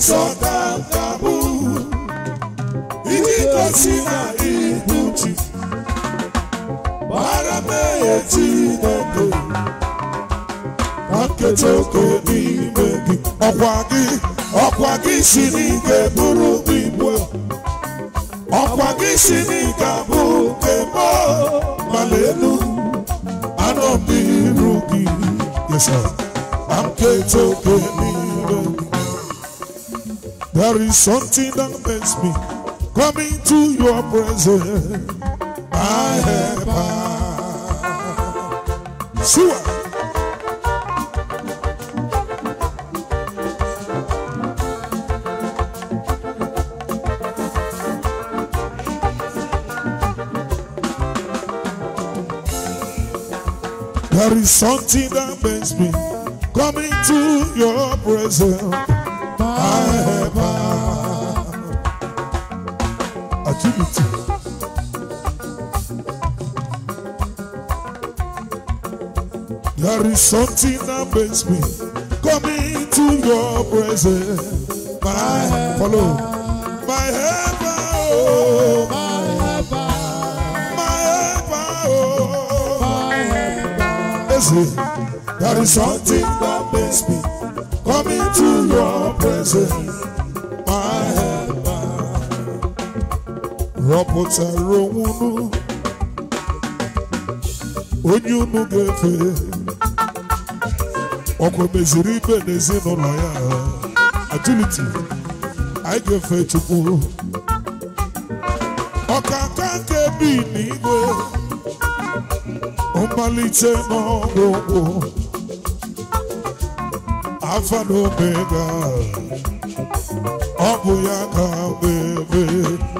ịchọtataụ ijigosi na ibu ji gbara m ehe oke n'ime gị ọkwa gị ọkwa gị si n'ike bụrụ ibu, ọkwa gị si n'ike abụrụ nke mala elu anọ m n'iru gị yesa na oke There is something that makes me come into your presence. My helper. Sure. There is something that makes me come into your presence. There is something that makes me come into your presence. My, my helper, follow. My heaven. oh. my heaven, my heaven. oh. my helper. Oh. there is something that makes me come into your presence. Chọpụtara onwe unu onye unu ga-efe ọkwa meziri ibe n'ezinụlọ ya agiliti anyị ga-efe Chukwu ọkaka nke bi n'igwe mmalite n'ọgwụgwụ afa na omega ọ bụ ya ka mgbe ebe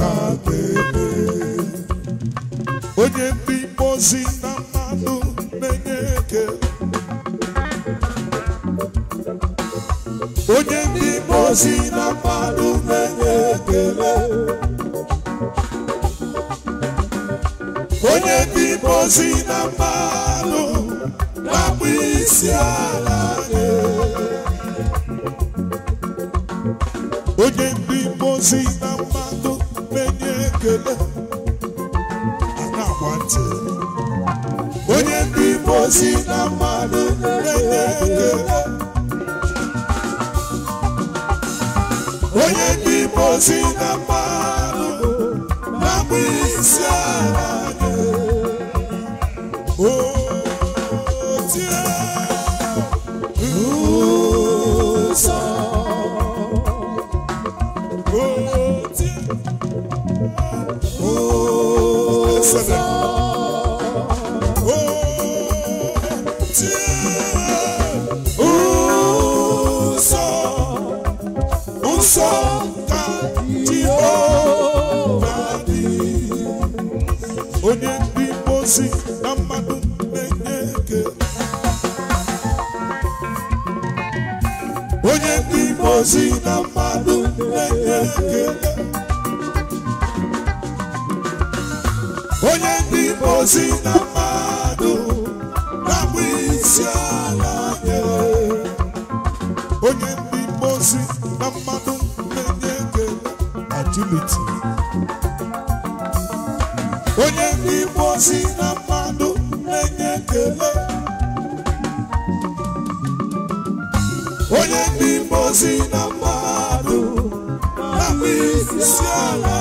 na-ata ebe onye ndị mposi na mmanụ na-enye ekele onye ndị mposi na mmanụ na-enye ekele onye ndị mposi na mmanụ na-akpụ isi ala nye onye ndị mposi na agba ntị onye ndị Igbo na mmadụ na ekele onye ndị na mmadụ na-agba isi ala ngozi na mmadụ na onye ndị ozi na mmadụ ngọzi na mmadụ na mba isi ala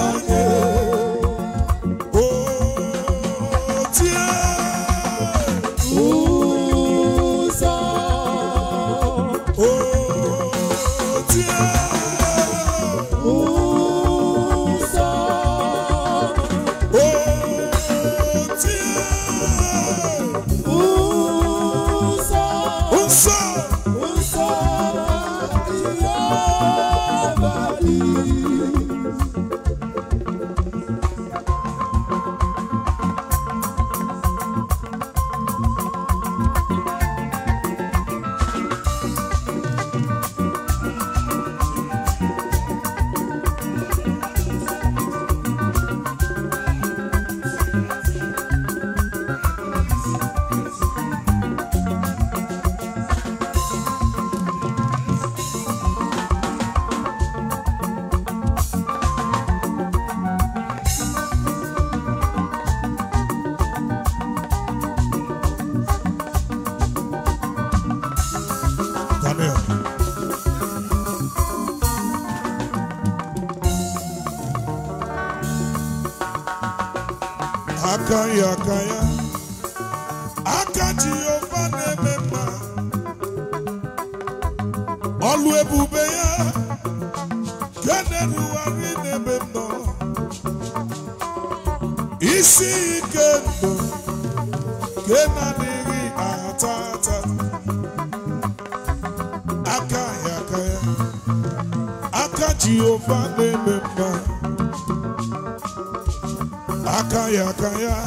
maka ya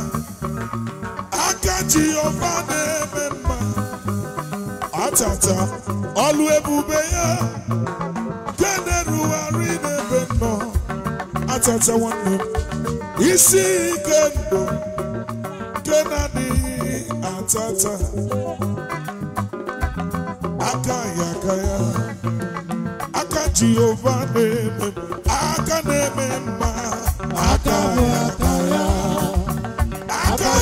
aka Jehova na-eme mma atata ọlụ ebube ya denerugharị n'ebe nọ atata nwanne m isi ike ndụ nke na-adịghị atata aka ya aka ya aka Jehova na-eme aka na-eme mma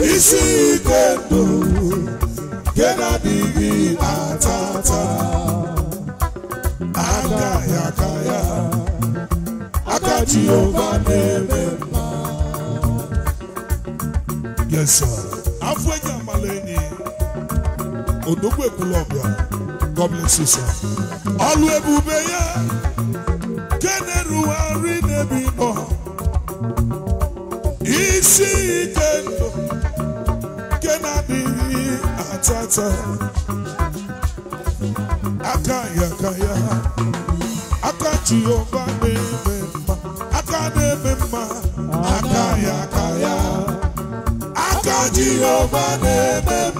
isi yes sir odogwu ekwulọbịa gọvanọ sisa ọlụ ebube ya nke na-erugharị n'ebe nọ isi ike ndụ nke na-adịghị atata aka ya aka ya aka Jehova na-eme mma aka na-eme mma aka ya aka ya aka na-eme mma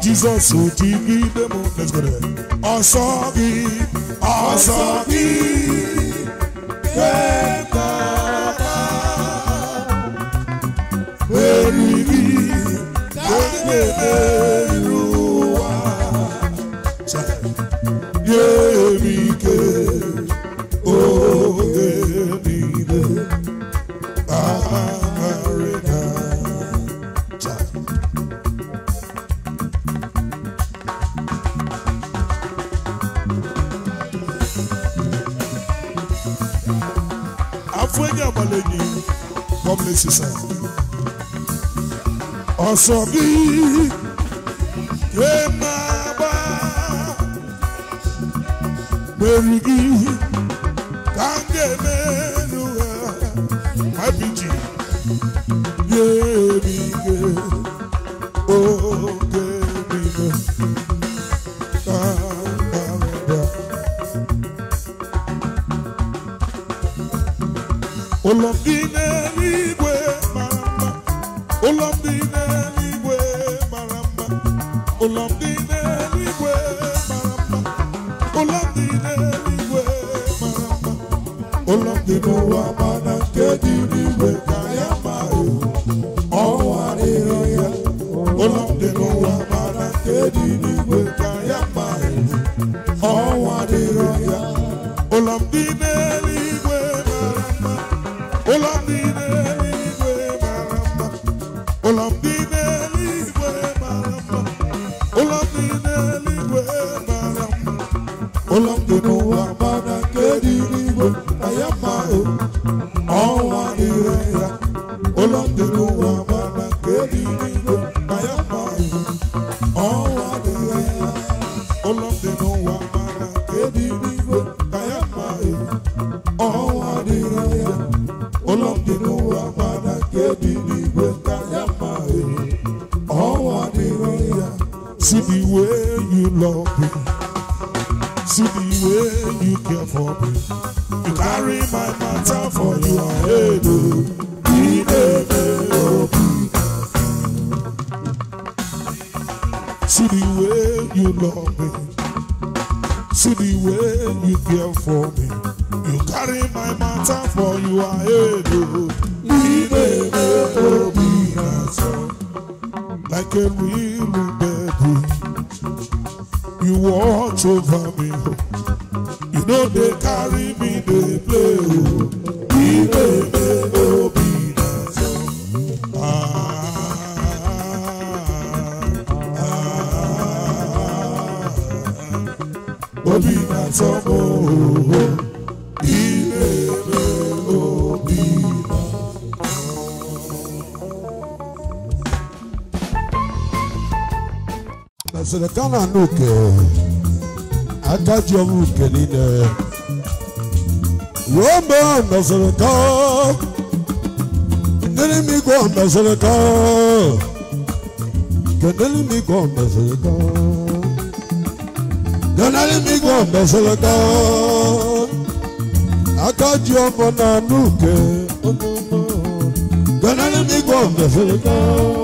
ti dịgide m ọsọ gị ọsọ gị ekpata eriri ekpere ụlọ dị n'ụwa mana nke dị n'igwe na n'oke agadi ọnwụ nke niile wee mgbe ha nọziri ka kedere m igwe ọmeziri ka kedere m igwe ọmeziri ka kedere m igwe ọmeziri ka agadi ọmụ na n'oke kedere m igwe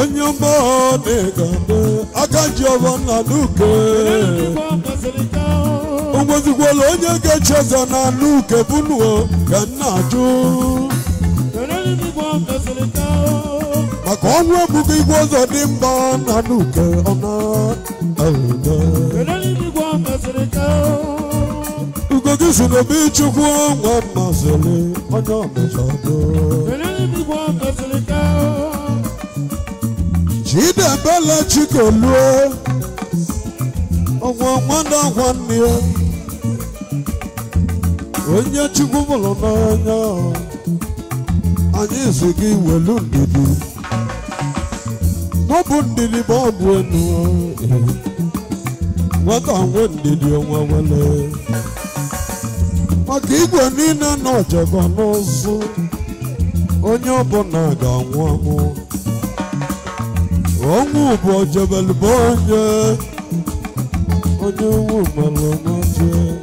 onye ọma na-egade aka Giovanna Luke ogbezikwala onye ga echeza ụzọ na Luke bụnuo ka nna ajụ maka ọnwụ ebughị igwe ọzọ dị mba na Luke ọ na-ede ogogi si n'obi chukwu nwa mmasịrị onye ọmụsọ Chidebele Chikoluo ọgwọ nwanne ọgwọ nne ya onye Chukwu mụrụ n'anya anyị si gị welu ndidi n'ọbụ ndidi ma bụ enu nwata nwe ndidi onwe wele maka igwe niile na ọjọgọ onye onye ọbụla ga-anwụ anwụ Ongu jebel bonje Ongu malamonje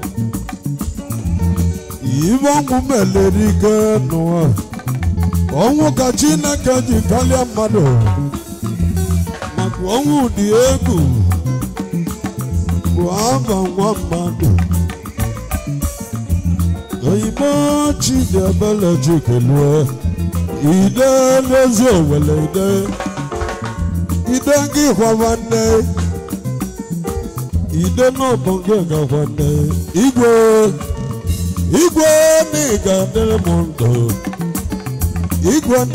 Ivangu melerike noa Ongu kachina kaji kalia mado. Maku ongu diegu Kwamba mado. Kaima chijabala jikelwe Ide lezo wale ide Ide ide gị hwa ga igwe igwe na igwe m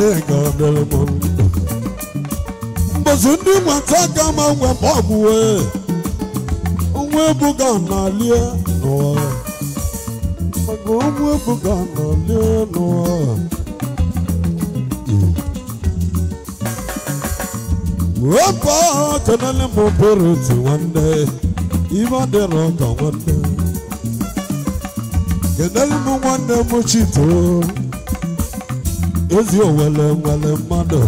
mbozu ndị nwata ga mawe nwe ma ọ bụwe nwa ebuga na-alie wepụ ọha kenele otu nwanne ibe ọ dịrọ ka nwanne nwanne m chito ezi owele nwere mmadụ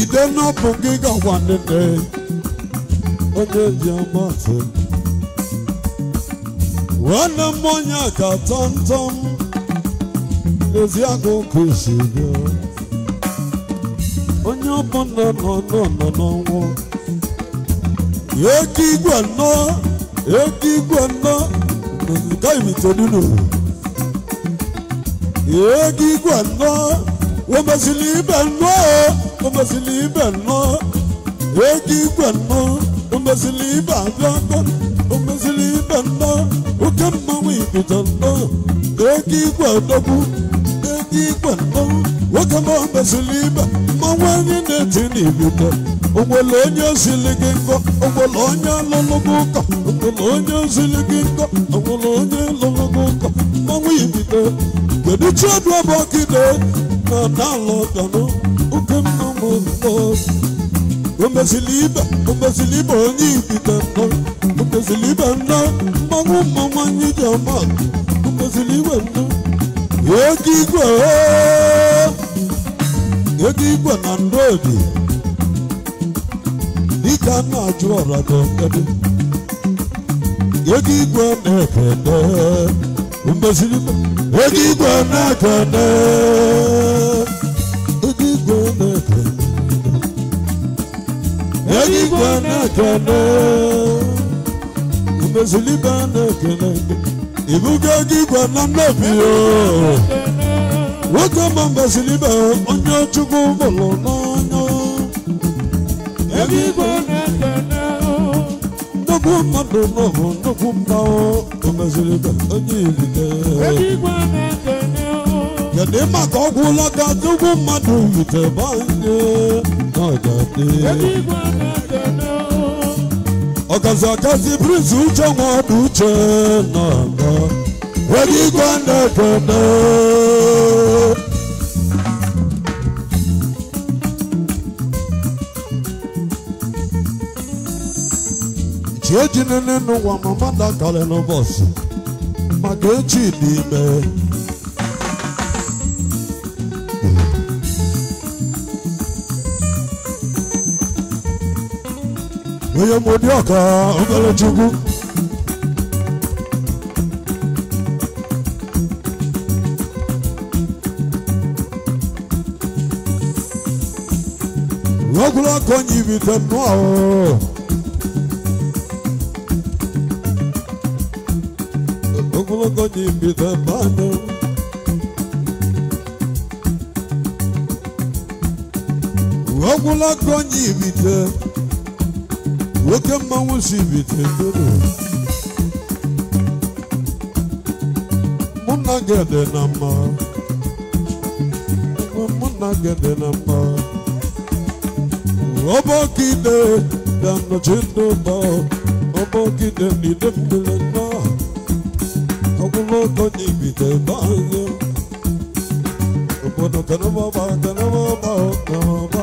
ide n'ọbụ gị gakwa nne onye ji nwanne m ka tọmtọm ezi onye ọbụ nọ nọ nọ n'ọnwụ ego igwe nọ ego igwe nọ gaghịmtedunu ego igwe nọ womezili ibe nọ womezili ibe nọ ego igwe nọ womezili ibe abịa nọ womezili ibe nọ oke mmanwụ ibido nọ ego igwe dọgbu ego igwe nọ nwoke ma ọ mezili ibe mmanwụ anyị na-eti n'ibite onwere onye ozili gị nkọ onwere onye alụlụ gị ụkọ onwere onye ozili gị nkọ onwere onye lụlụ gị ụkọ mmanwụ ibite kedu chi ọdụ ọbụ ọkide na dalụ ọdọnụ oke mmanwụ mmụọ omezili ibe omezili ibe onye ibite nnọ omezili ibe nnọ mmanwụ mmanwụ anyị ji ọma omezili ibe nnọ oge igwe ooo ego igbo na ndodi dịka na ajụ ọrado ebe ego igbo na-ekene mbeziri ego igbo na-ekene ego igbo na-ekene ego igbo na-ekene mbeziri ibe na-ekene ibugo ego igbo na nnobi ooo oh. nwoke ọma mbaziri ibe onye chukwu mụrụ n'anya ebe igwe nnukwu mmadụ n'ụhụ nnukwu mmanwụ omeziri ibe onye ilike kedu ịma ka ọ gwụla ka nnukwu mmadụ yite banye n'ọjadị ọgazi agazi prince uche nwa ọdụ uche nọ Wagi Gwanda Gwanda. Chiejina nínú wa màmá dàkàlẹ̀ lọ bọ̀sì, màgéjì ní ibẹ̀. Oyè mo dé ọ̀ka ọ̀gbẹ́lẹ̀ Chukwu. konyi bitanu awo. Okolo konyi bitanu. Okolo konyi bite. Woke mmanwu si bite dodo. Muna gede na mma. Muna gede na Obokide dan no chindo ba Obokide ni dembele na Obulo ko ni bide ba Obono kana ba ba kana ba ba kana ba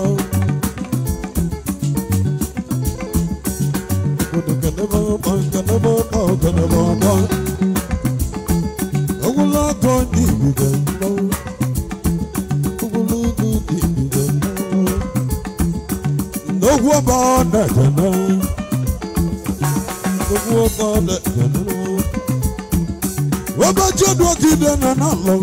Obono kana ba ba kana ba ba kana ba ba Obulo bide ba gbogbo ọba ọ̀nà ìjọba gbogbo ọba ọ̀nà ìjọba ọba jọ́dún ọ̀gídẹ̀ náà lọ.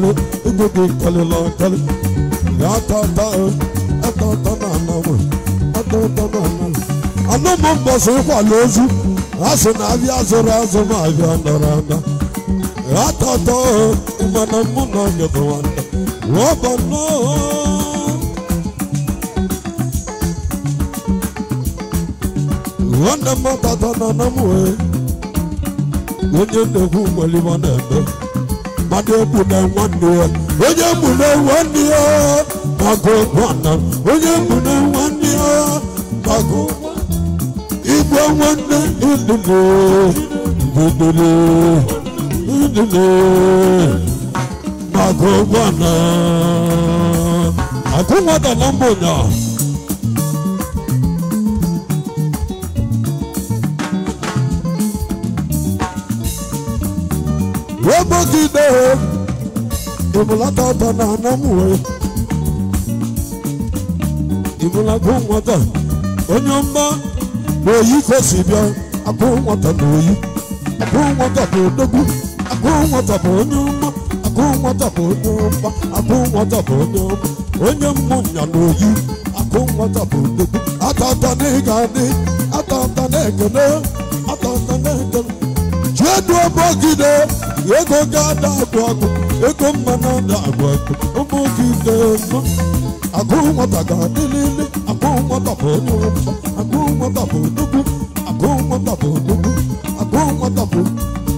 kwalu ugogo kwalu lọ kwalu atọtọ atọtọ na anọmụ atọtọ na anọmụ anọmụ mbọsị kwalu ozu asị na abịa azụrụ azụ ma abịa nọrọ mana mụ na ọnyọkọ nwanne wọọ bụ nwanne m ọtọtọ na anọmụ onye nnekwu nwere na-eme onye mụne nwanne ya onye mụne nwanne ya gbagụ nwanna onye mụne nwanne ya gbagụ igwe nwanne Mago ndụlụ ndụlụ gbagụ nwanna agụ nwanna na mbụ ụnyaahụ abogide imulata ta na anamuwe imulago nwata onye ọma na oyi kwesị bịa akụ nwata na oyi akụ nwata na odogwu akụ nwata bụ onye ọma akụ nwata bụ onye ọma akụ nwata bụ onye ọma onye mmụnya na oyi akụ nwata ego ga-ada agwụ agwụ ego mma na-ada agwụ agwụ ụmụ gị na-eme agụ nwata ga-adị n'ime agụ nwata bụ onye ụmụ agụ nwata bụ nnukwu agụ nwata bụ nnukwu agụ nwata bụ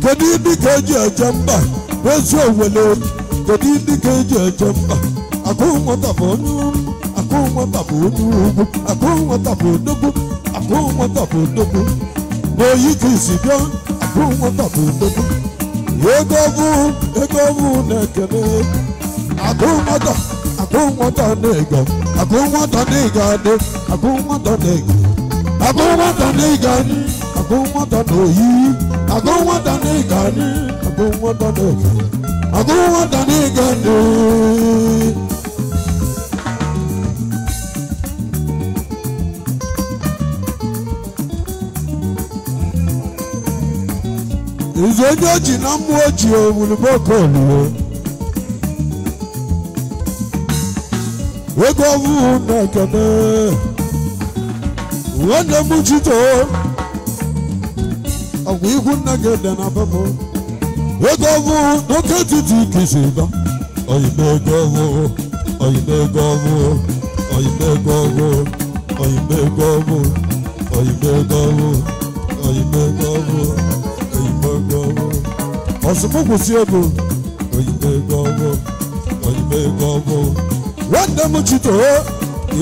kedu ndị ga-eji eje mba ezi owele kedu ndị ga-eji eje mba agụ nwata bụ onye ụmụ agụ nwata bụ onye ugwu agụ nwata bụ nnukwu agụ nwata bụ nnukwu n'oyi ka isi bịa agụ nwata bụ nnukwu egwu egwu na-ekene agụ nwata agụ nwata na-ego agụ nwata na-ego adị agụ nwata na-ego agụ nwata na-ego adị agụ nwata na-oyi agụ nwata na-ego adị agụ nwata na-ego agụ nwata na-ego adị ife onye oji na mmụọ oji owuluboko olue ego ọwụwụ na ekene nwanne m jito ọgwụ ihu nna gị dị na bapụ ego ọwụwụ n'oke etiti kisi dọ oyime ego ọwụwụ oyime ego ọwụwụ oyime ego ọwụwụ oyime ego ọwụwụ oyime ego ọwụwụ oyime ego ọwụwụ gbọwọ ọsùnmùkùsì ego oyibe gbọwọ oyibe gbọwọ nwanne m chito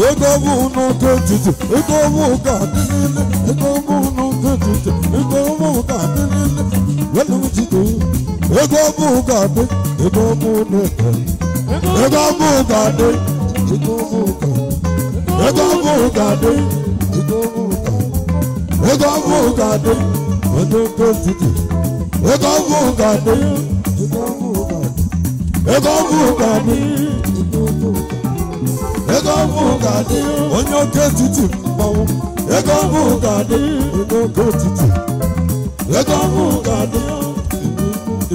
ego ọbụ n'oke ntụtụ ego ọbụ ka dị niile ego ọbụ n'oke ntụtụ ego ọbụ ka dị niile nwanne m chito ego ọbụ ka dị ego ọbụ n'oke ego ọbụ ka dị ego ọbụ ka ego ọbụ ka dị ego ọbụ ka ego ọbụ ka dị ego ọbụ ka dị. Ego vuga mi. Ego vuga mi. Ego vuga mi. Onye oke titi mmanwụ. Ego vuga mi. Onye oke titi. Ego vuga mi.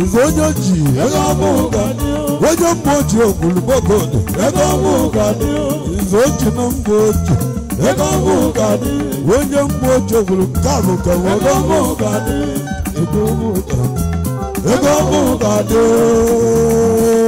Ife onye ji ego vuga mi. Onye mmụọ ji ogwulugbogbo dị. Ego vuga mi. Ife oji na mbụ oji. Ego vuga mi. Onye mmụọ ji ogwulugbogbo dị. Ego vuga mi ogun kàdé.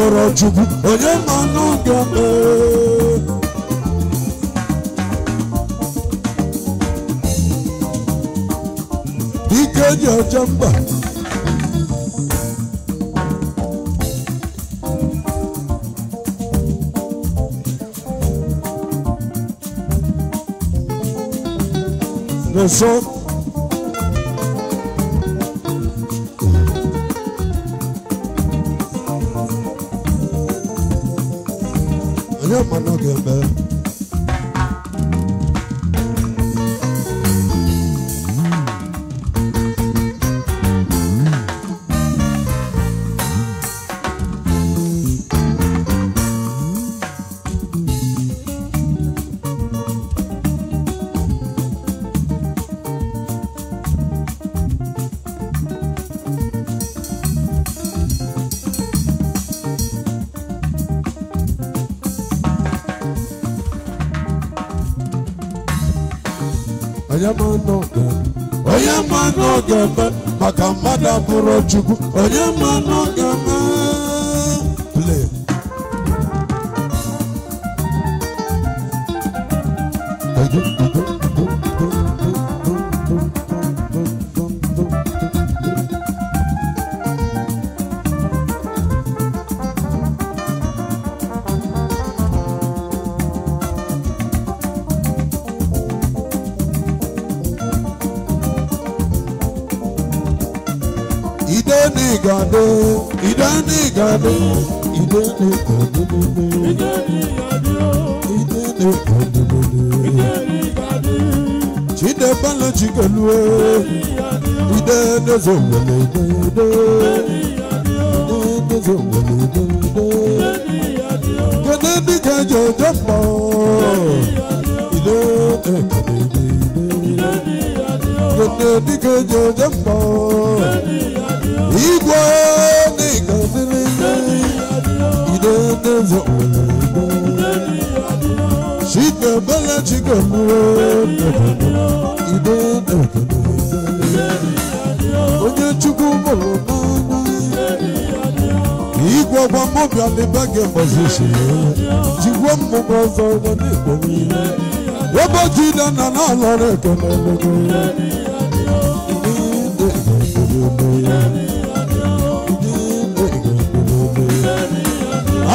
nwụrụ chukwu onye mmanụ ga-eme ike ji oche mba the chukwu onye mmanụ ga Chicken, but let you go. You don't know. kòrò náà. Igwe ọgba mmobi adị be gị mgbazi si jigwe mmụba ọzọ ụgbọ n'igbo niile. Ebe ji ile na na-alọrọ ekele n'ogo ya.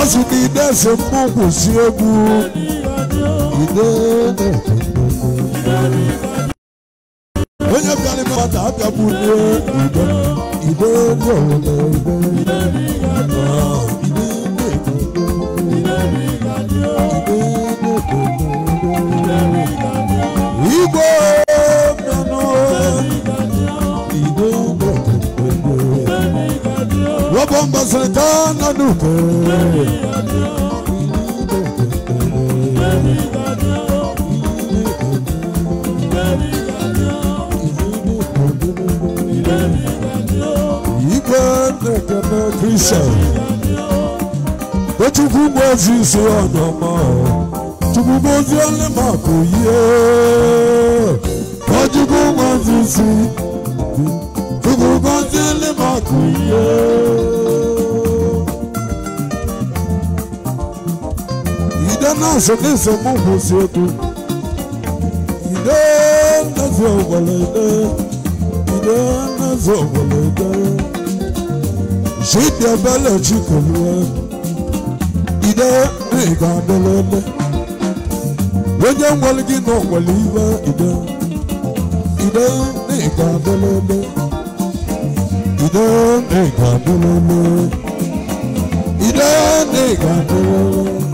Asị na ide ese mmụọ kwụsị egwu. Ide na nsogbu kwụsị otu ide nnazi ogbolode ide nnazi ogbolode chidiebele chikoluwe ide ịga adịlele onye nwere gị na ogwele iwe ide ide ịga ịga ịga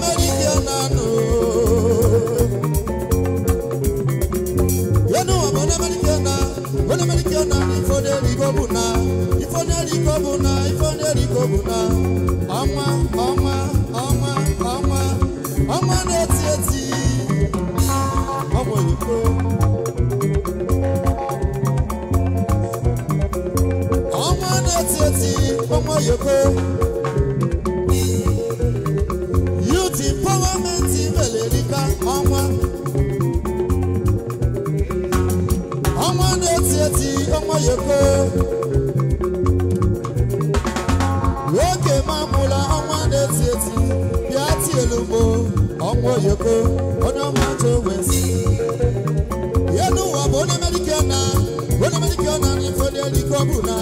mama nwoke ma mụla ọnwa na-eti eti bịa bụ ọnwa oyoko onye ọma ntụ wesi ya n'ụwa bụ onye medikal na onye medikal na n'ife dị ọnwa ọ bụ na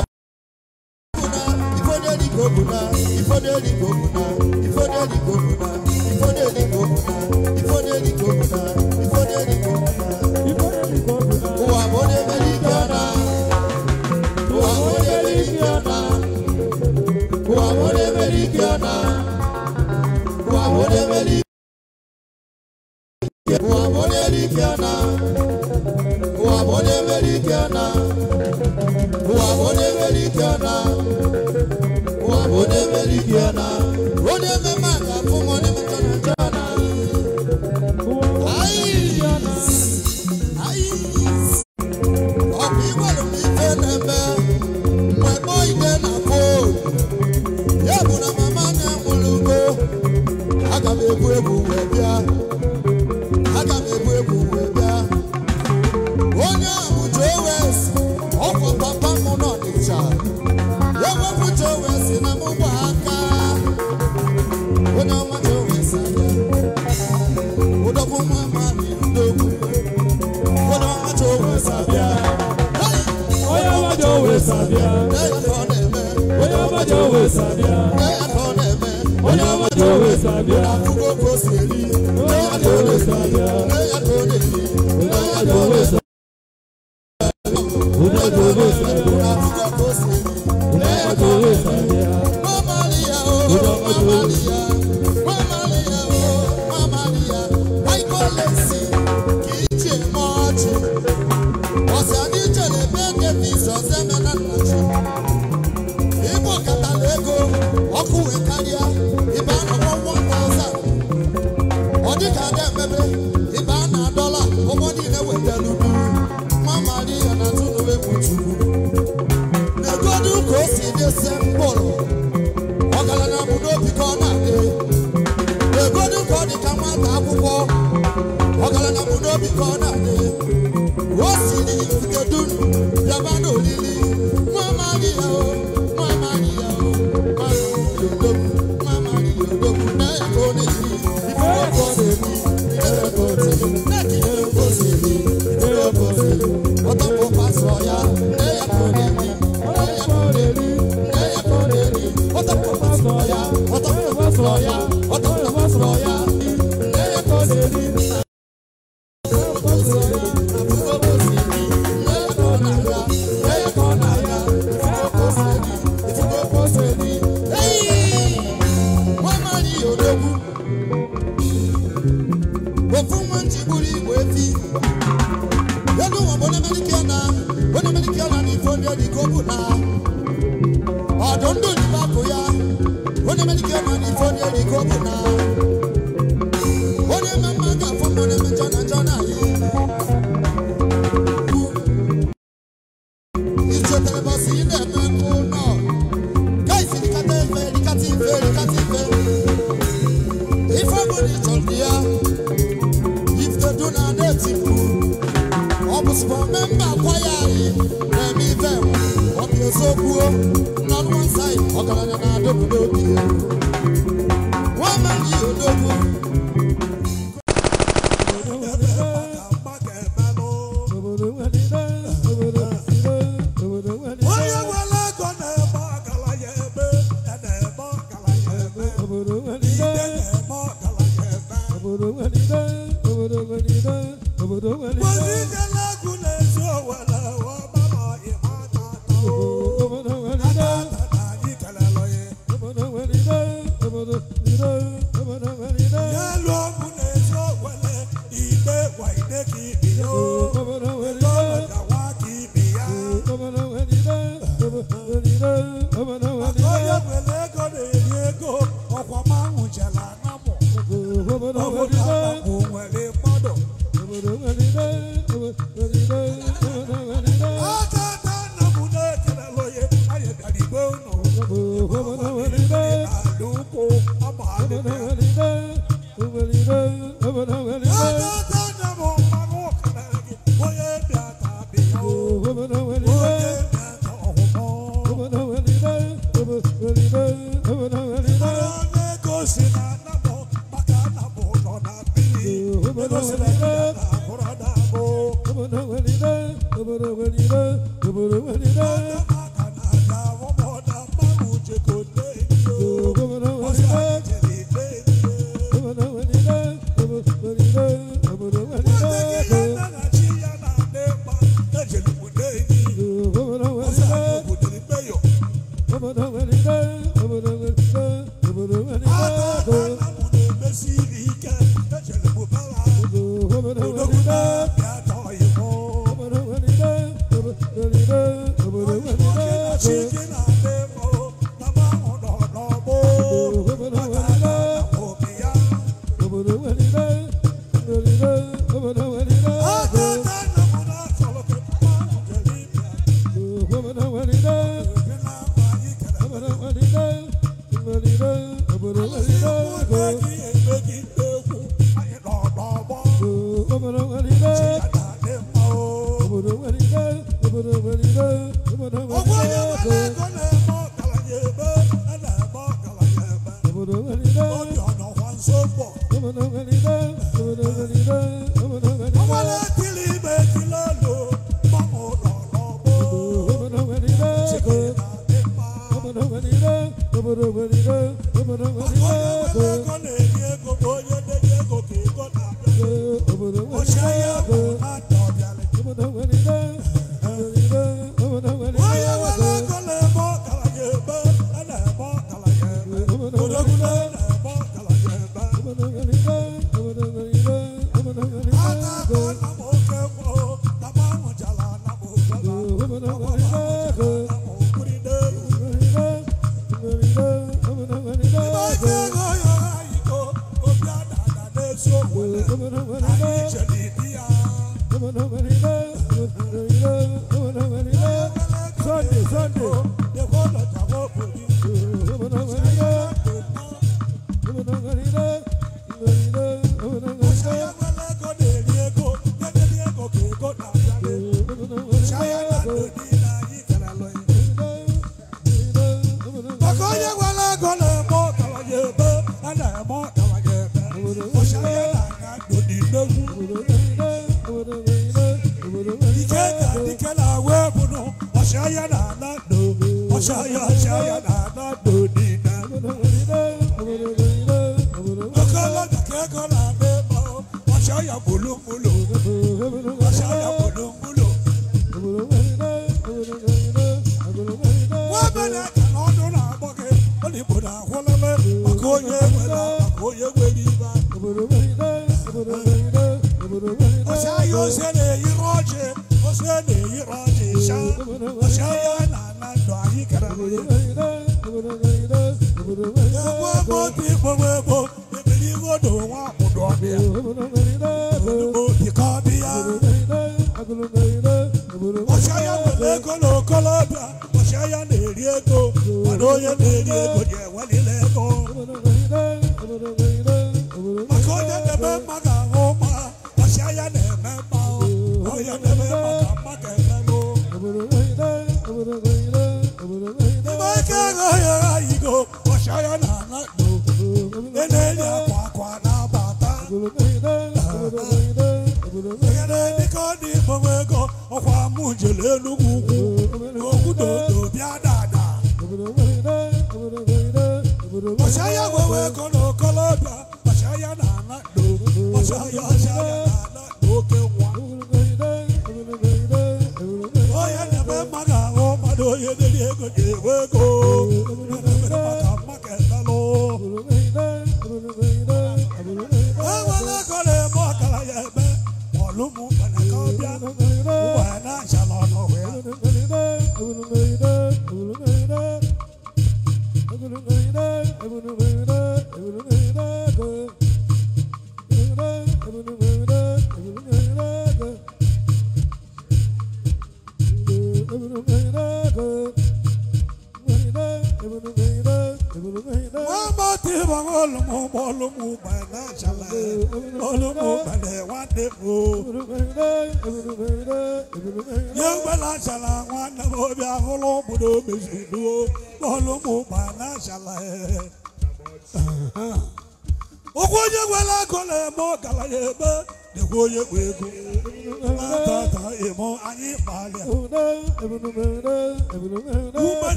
chigburi wefi yɛdu wɔn bɔnɛ mɛni kia na bɔnɛ mɛni kia na ni fɔn yɛ di gogo na ɔdɔn do ni ba ya bɔnɛ mɛni kia na ni fɔn yɛ di gogo na.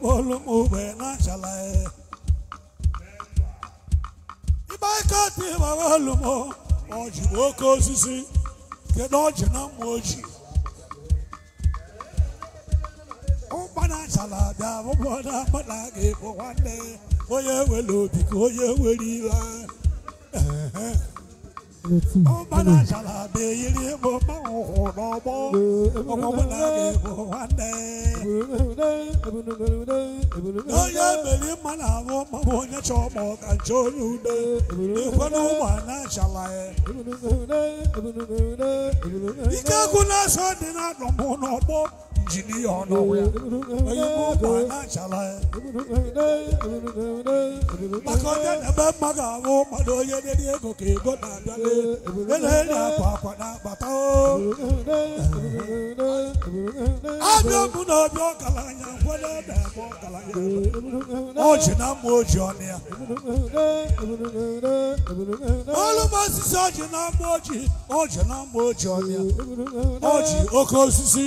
olumugbe n'achala ya ibe aka dị mara olumo ọ bụ oke osisi kedu ọjị na mma oji ụkpa na-achala abịa abụbọ na-akpa na aga ịbụ nwanne onye nwere obi ka onye nwere iwe Omana shalabe yiri mo mo ono mo Omo wala ke mo ande Oye beli mana mo mo mo nye na kancho nyude Ifanu mana shalaye Ika kuna so dina injinia ọnọwụya onye bụ ụba na-achala ya na-eme mma ga-abụ onye dị ego ka ego na-abịa na-enye akwa akwa na-agbata abịa bụ na ọbịa ọgaranya nkwado na-eme ji ji ji ji oke osisi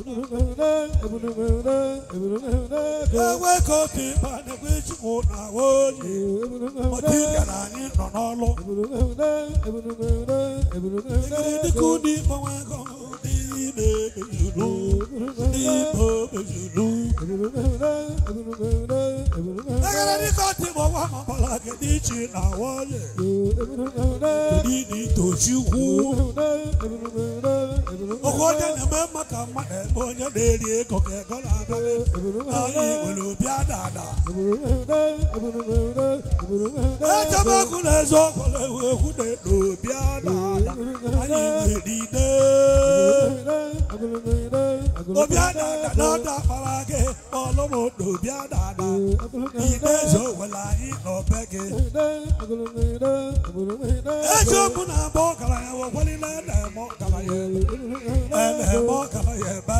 ewe ka obi mba na-egwe ejikwu na oyi ọdị gara anyị nọ n'ọlụ egiri dịka ụdị mgbanwe ego ndị na-emezuru ndị na-emezuru egere dịka ọdị mgbanwe ọmọbala gị dị iche na oyi ndị na-etochi ukwu oge ọdị na-eme maka mmadụ onye na-eri ego ga-ego na-aga anyị nwere obi adada echebekwu na eziokwu na-ewu ekwu na obi adada anyị nwere ide obi adada na akpara gị ọlụ m n'obi ide eze were anyị n'obe gị eziokwu na-agba ọgaranya wekwalila na-eme ọgaranya na-eme ọgaranya ebe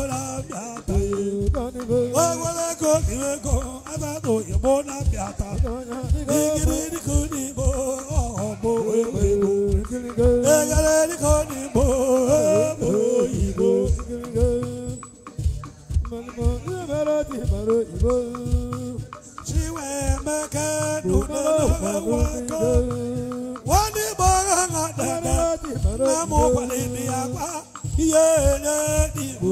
ogologo iwego abata oyibo na-apịa ata igiriko n'igbo ọhọbụ ewego egareriko n'igbo ọhọbụ oyibo chiwemeke nụnọnọgwagwakọ nwanne igbo ha ha dada na mụkwalịdị ya kwa ihe enye igbo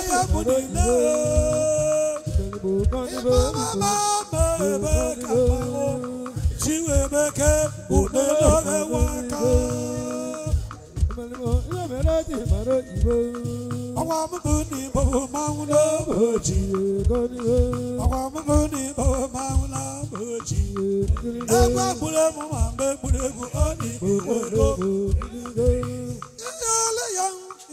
i gburu emu ma mgbe gburu egwu ọ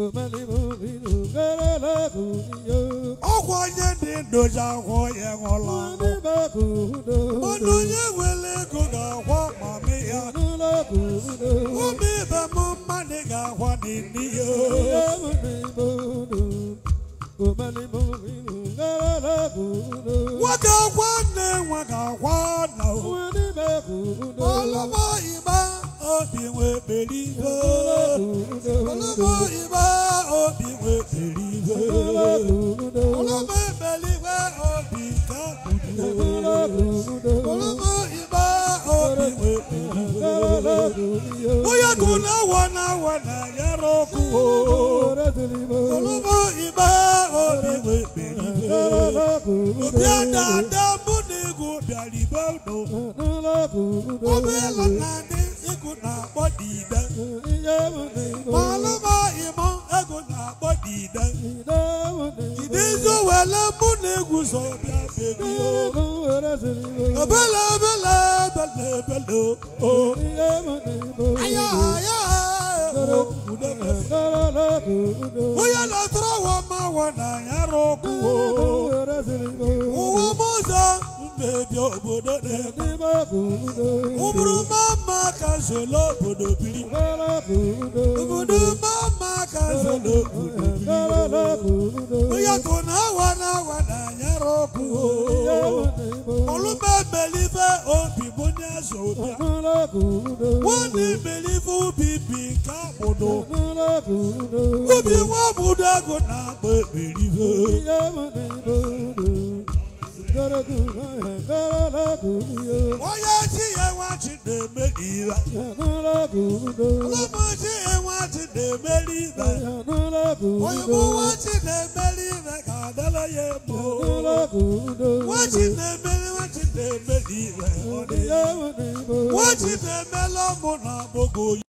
ọkwa onye dị ndozi akwụ ya nwụla mmadụ onye nwere ego ga-akwọ mami ya ụmụ ibe m mmadụ ga-akwa dị n'ihe nwoke akwa nne nwa ga-akwa na olụmọ igba obi nwebere iwe ọlọmọ iwe obi nwebere iwe ọlọmọ ebere iwe obi ka gburu ọlọmọ iwe obi nwebere iwe onye kụ na-awa na-awa na yara ọkụ ọlọmọ iwe obi nwebere iwe obi ada ada mbụ na egwu bịara ibe ụdọ ọbụ ịlọ na ndị egwu na-akpọ dide malụma ịma ego na-akpọ dide idizu wele mụ na egwu zọ bịa bebio obele obele ebele ebele o aya aya onye na-atụrụ ụwa ma wọ na ya rụkwuo ụwa mụzọ mmebi obodo na-eme ụbụrụ mama ka zolo obodo biri obodo mama ka zolo obodo biri yako na awa na awa na anyara ọkụ olume belive obi bụ onye ubi bi nke akpụdo ubi nwa obodo na onye chi ya nwachi na-eme iwe ọlụmụchi ya nwachi na-emeli ibe oyigbo nwachi na-emeli ibe ka adala ya ebo nwachi na-emeli nwachi na-emeli ibe nwachi na-emeli na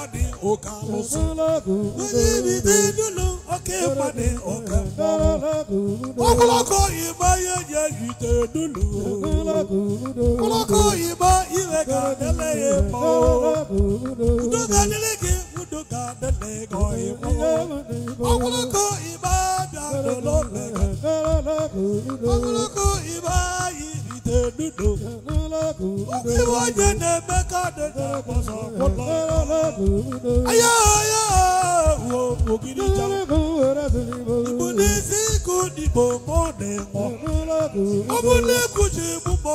pàdé ọ̀kan ọ̀sùn. Níbi tí dúnú òkè pàdé ọ̀kan ọ̀sùn. Ọ̀pọ̀lọpọ̀ ìgbà yẹyẹ ìtẹ̀ dúnú. Ọ̀pọ̀lọpọ̀ ìgbà ìwé ká délé yẹ pọ̀. Ndóga nílé kí ndóga délé kọ̀ yẹ pọ̀. Ọ̀pọ̀lọpọ̀ ìgbà dàdọ̀ lọ́lẹ̀ kan. Ọ̀pọ̀lọpọ̀ ìgbà dudu iwọ nye ne meka de ne kpọsọ kpọlọ ayo ayo wo ogidi ja ibuli siku dibo mo ne mọ ọmọdé kusi bubọ.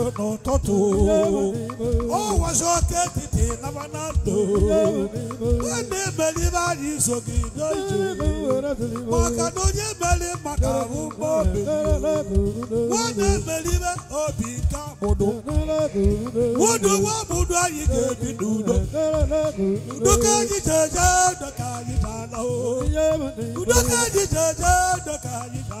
n'ụtụtụ ụwa zote etiti naba na ndụ ọ na-emelibe anyị iso gị n'ije maka na onye meli maka ahụ mgbobi onye emelibe obi nke amụdụ ụdụ nwa mụdụ anyị ga-ebi n'udo udo ka anyị jeje ndo ka anyị bana udo ka anyị jeje ndo ka anyị bana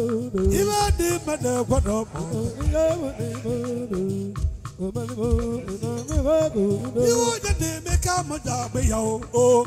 Imadi mana kwano. You want to make a mother be your own.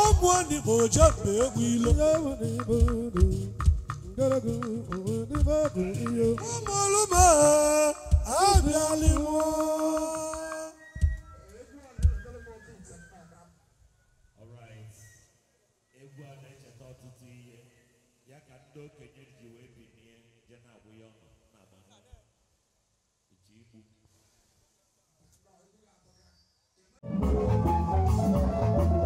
ọmụ n'igbo jebe egwu ilo ụmụlụma abịalịwo Thank you.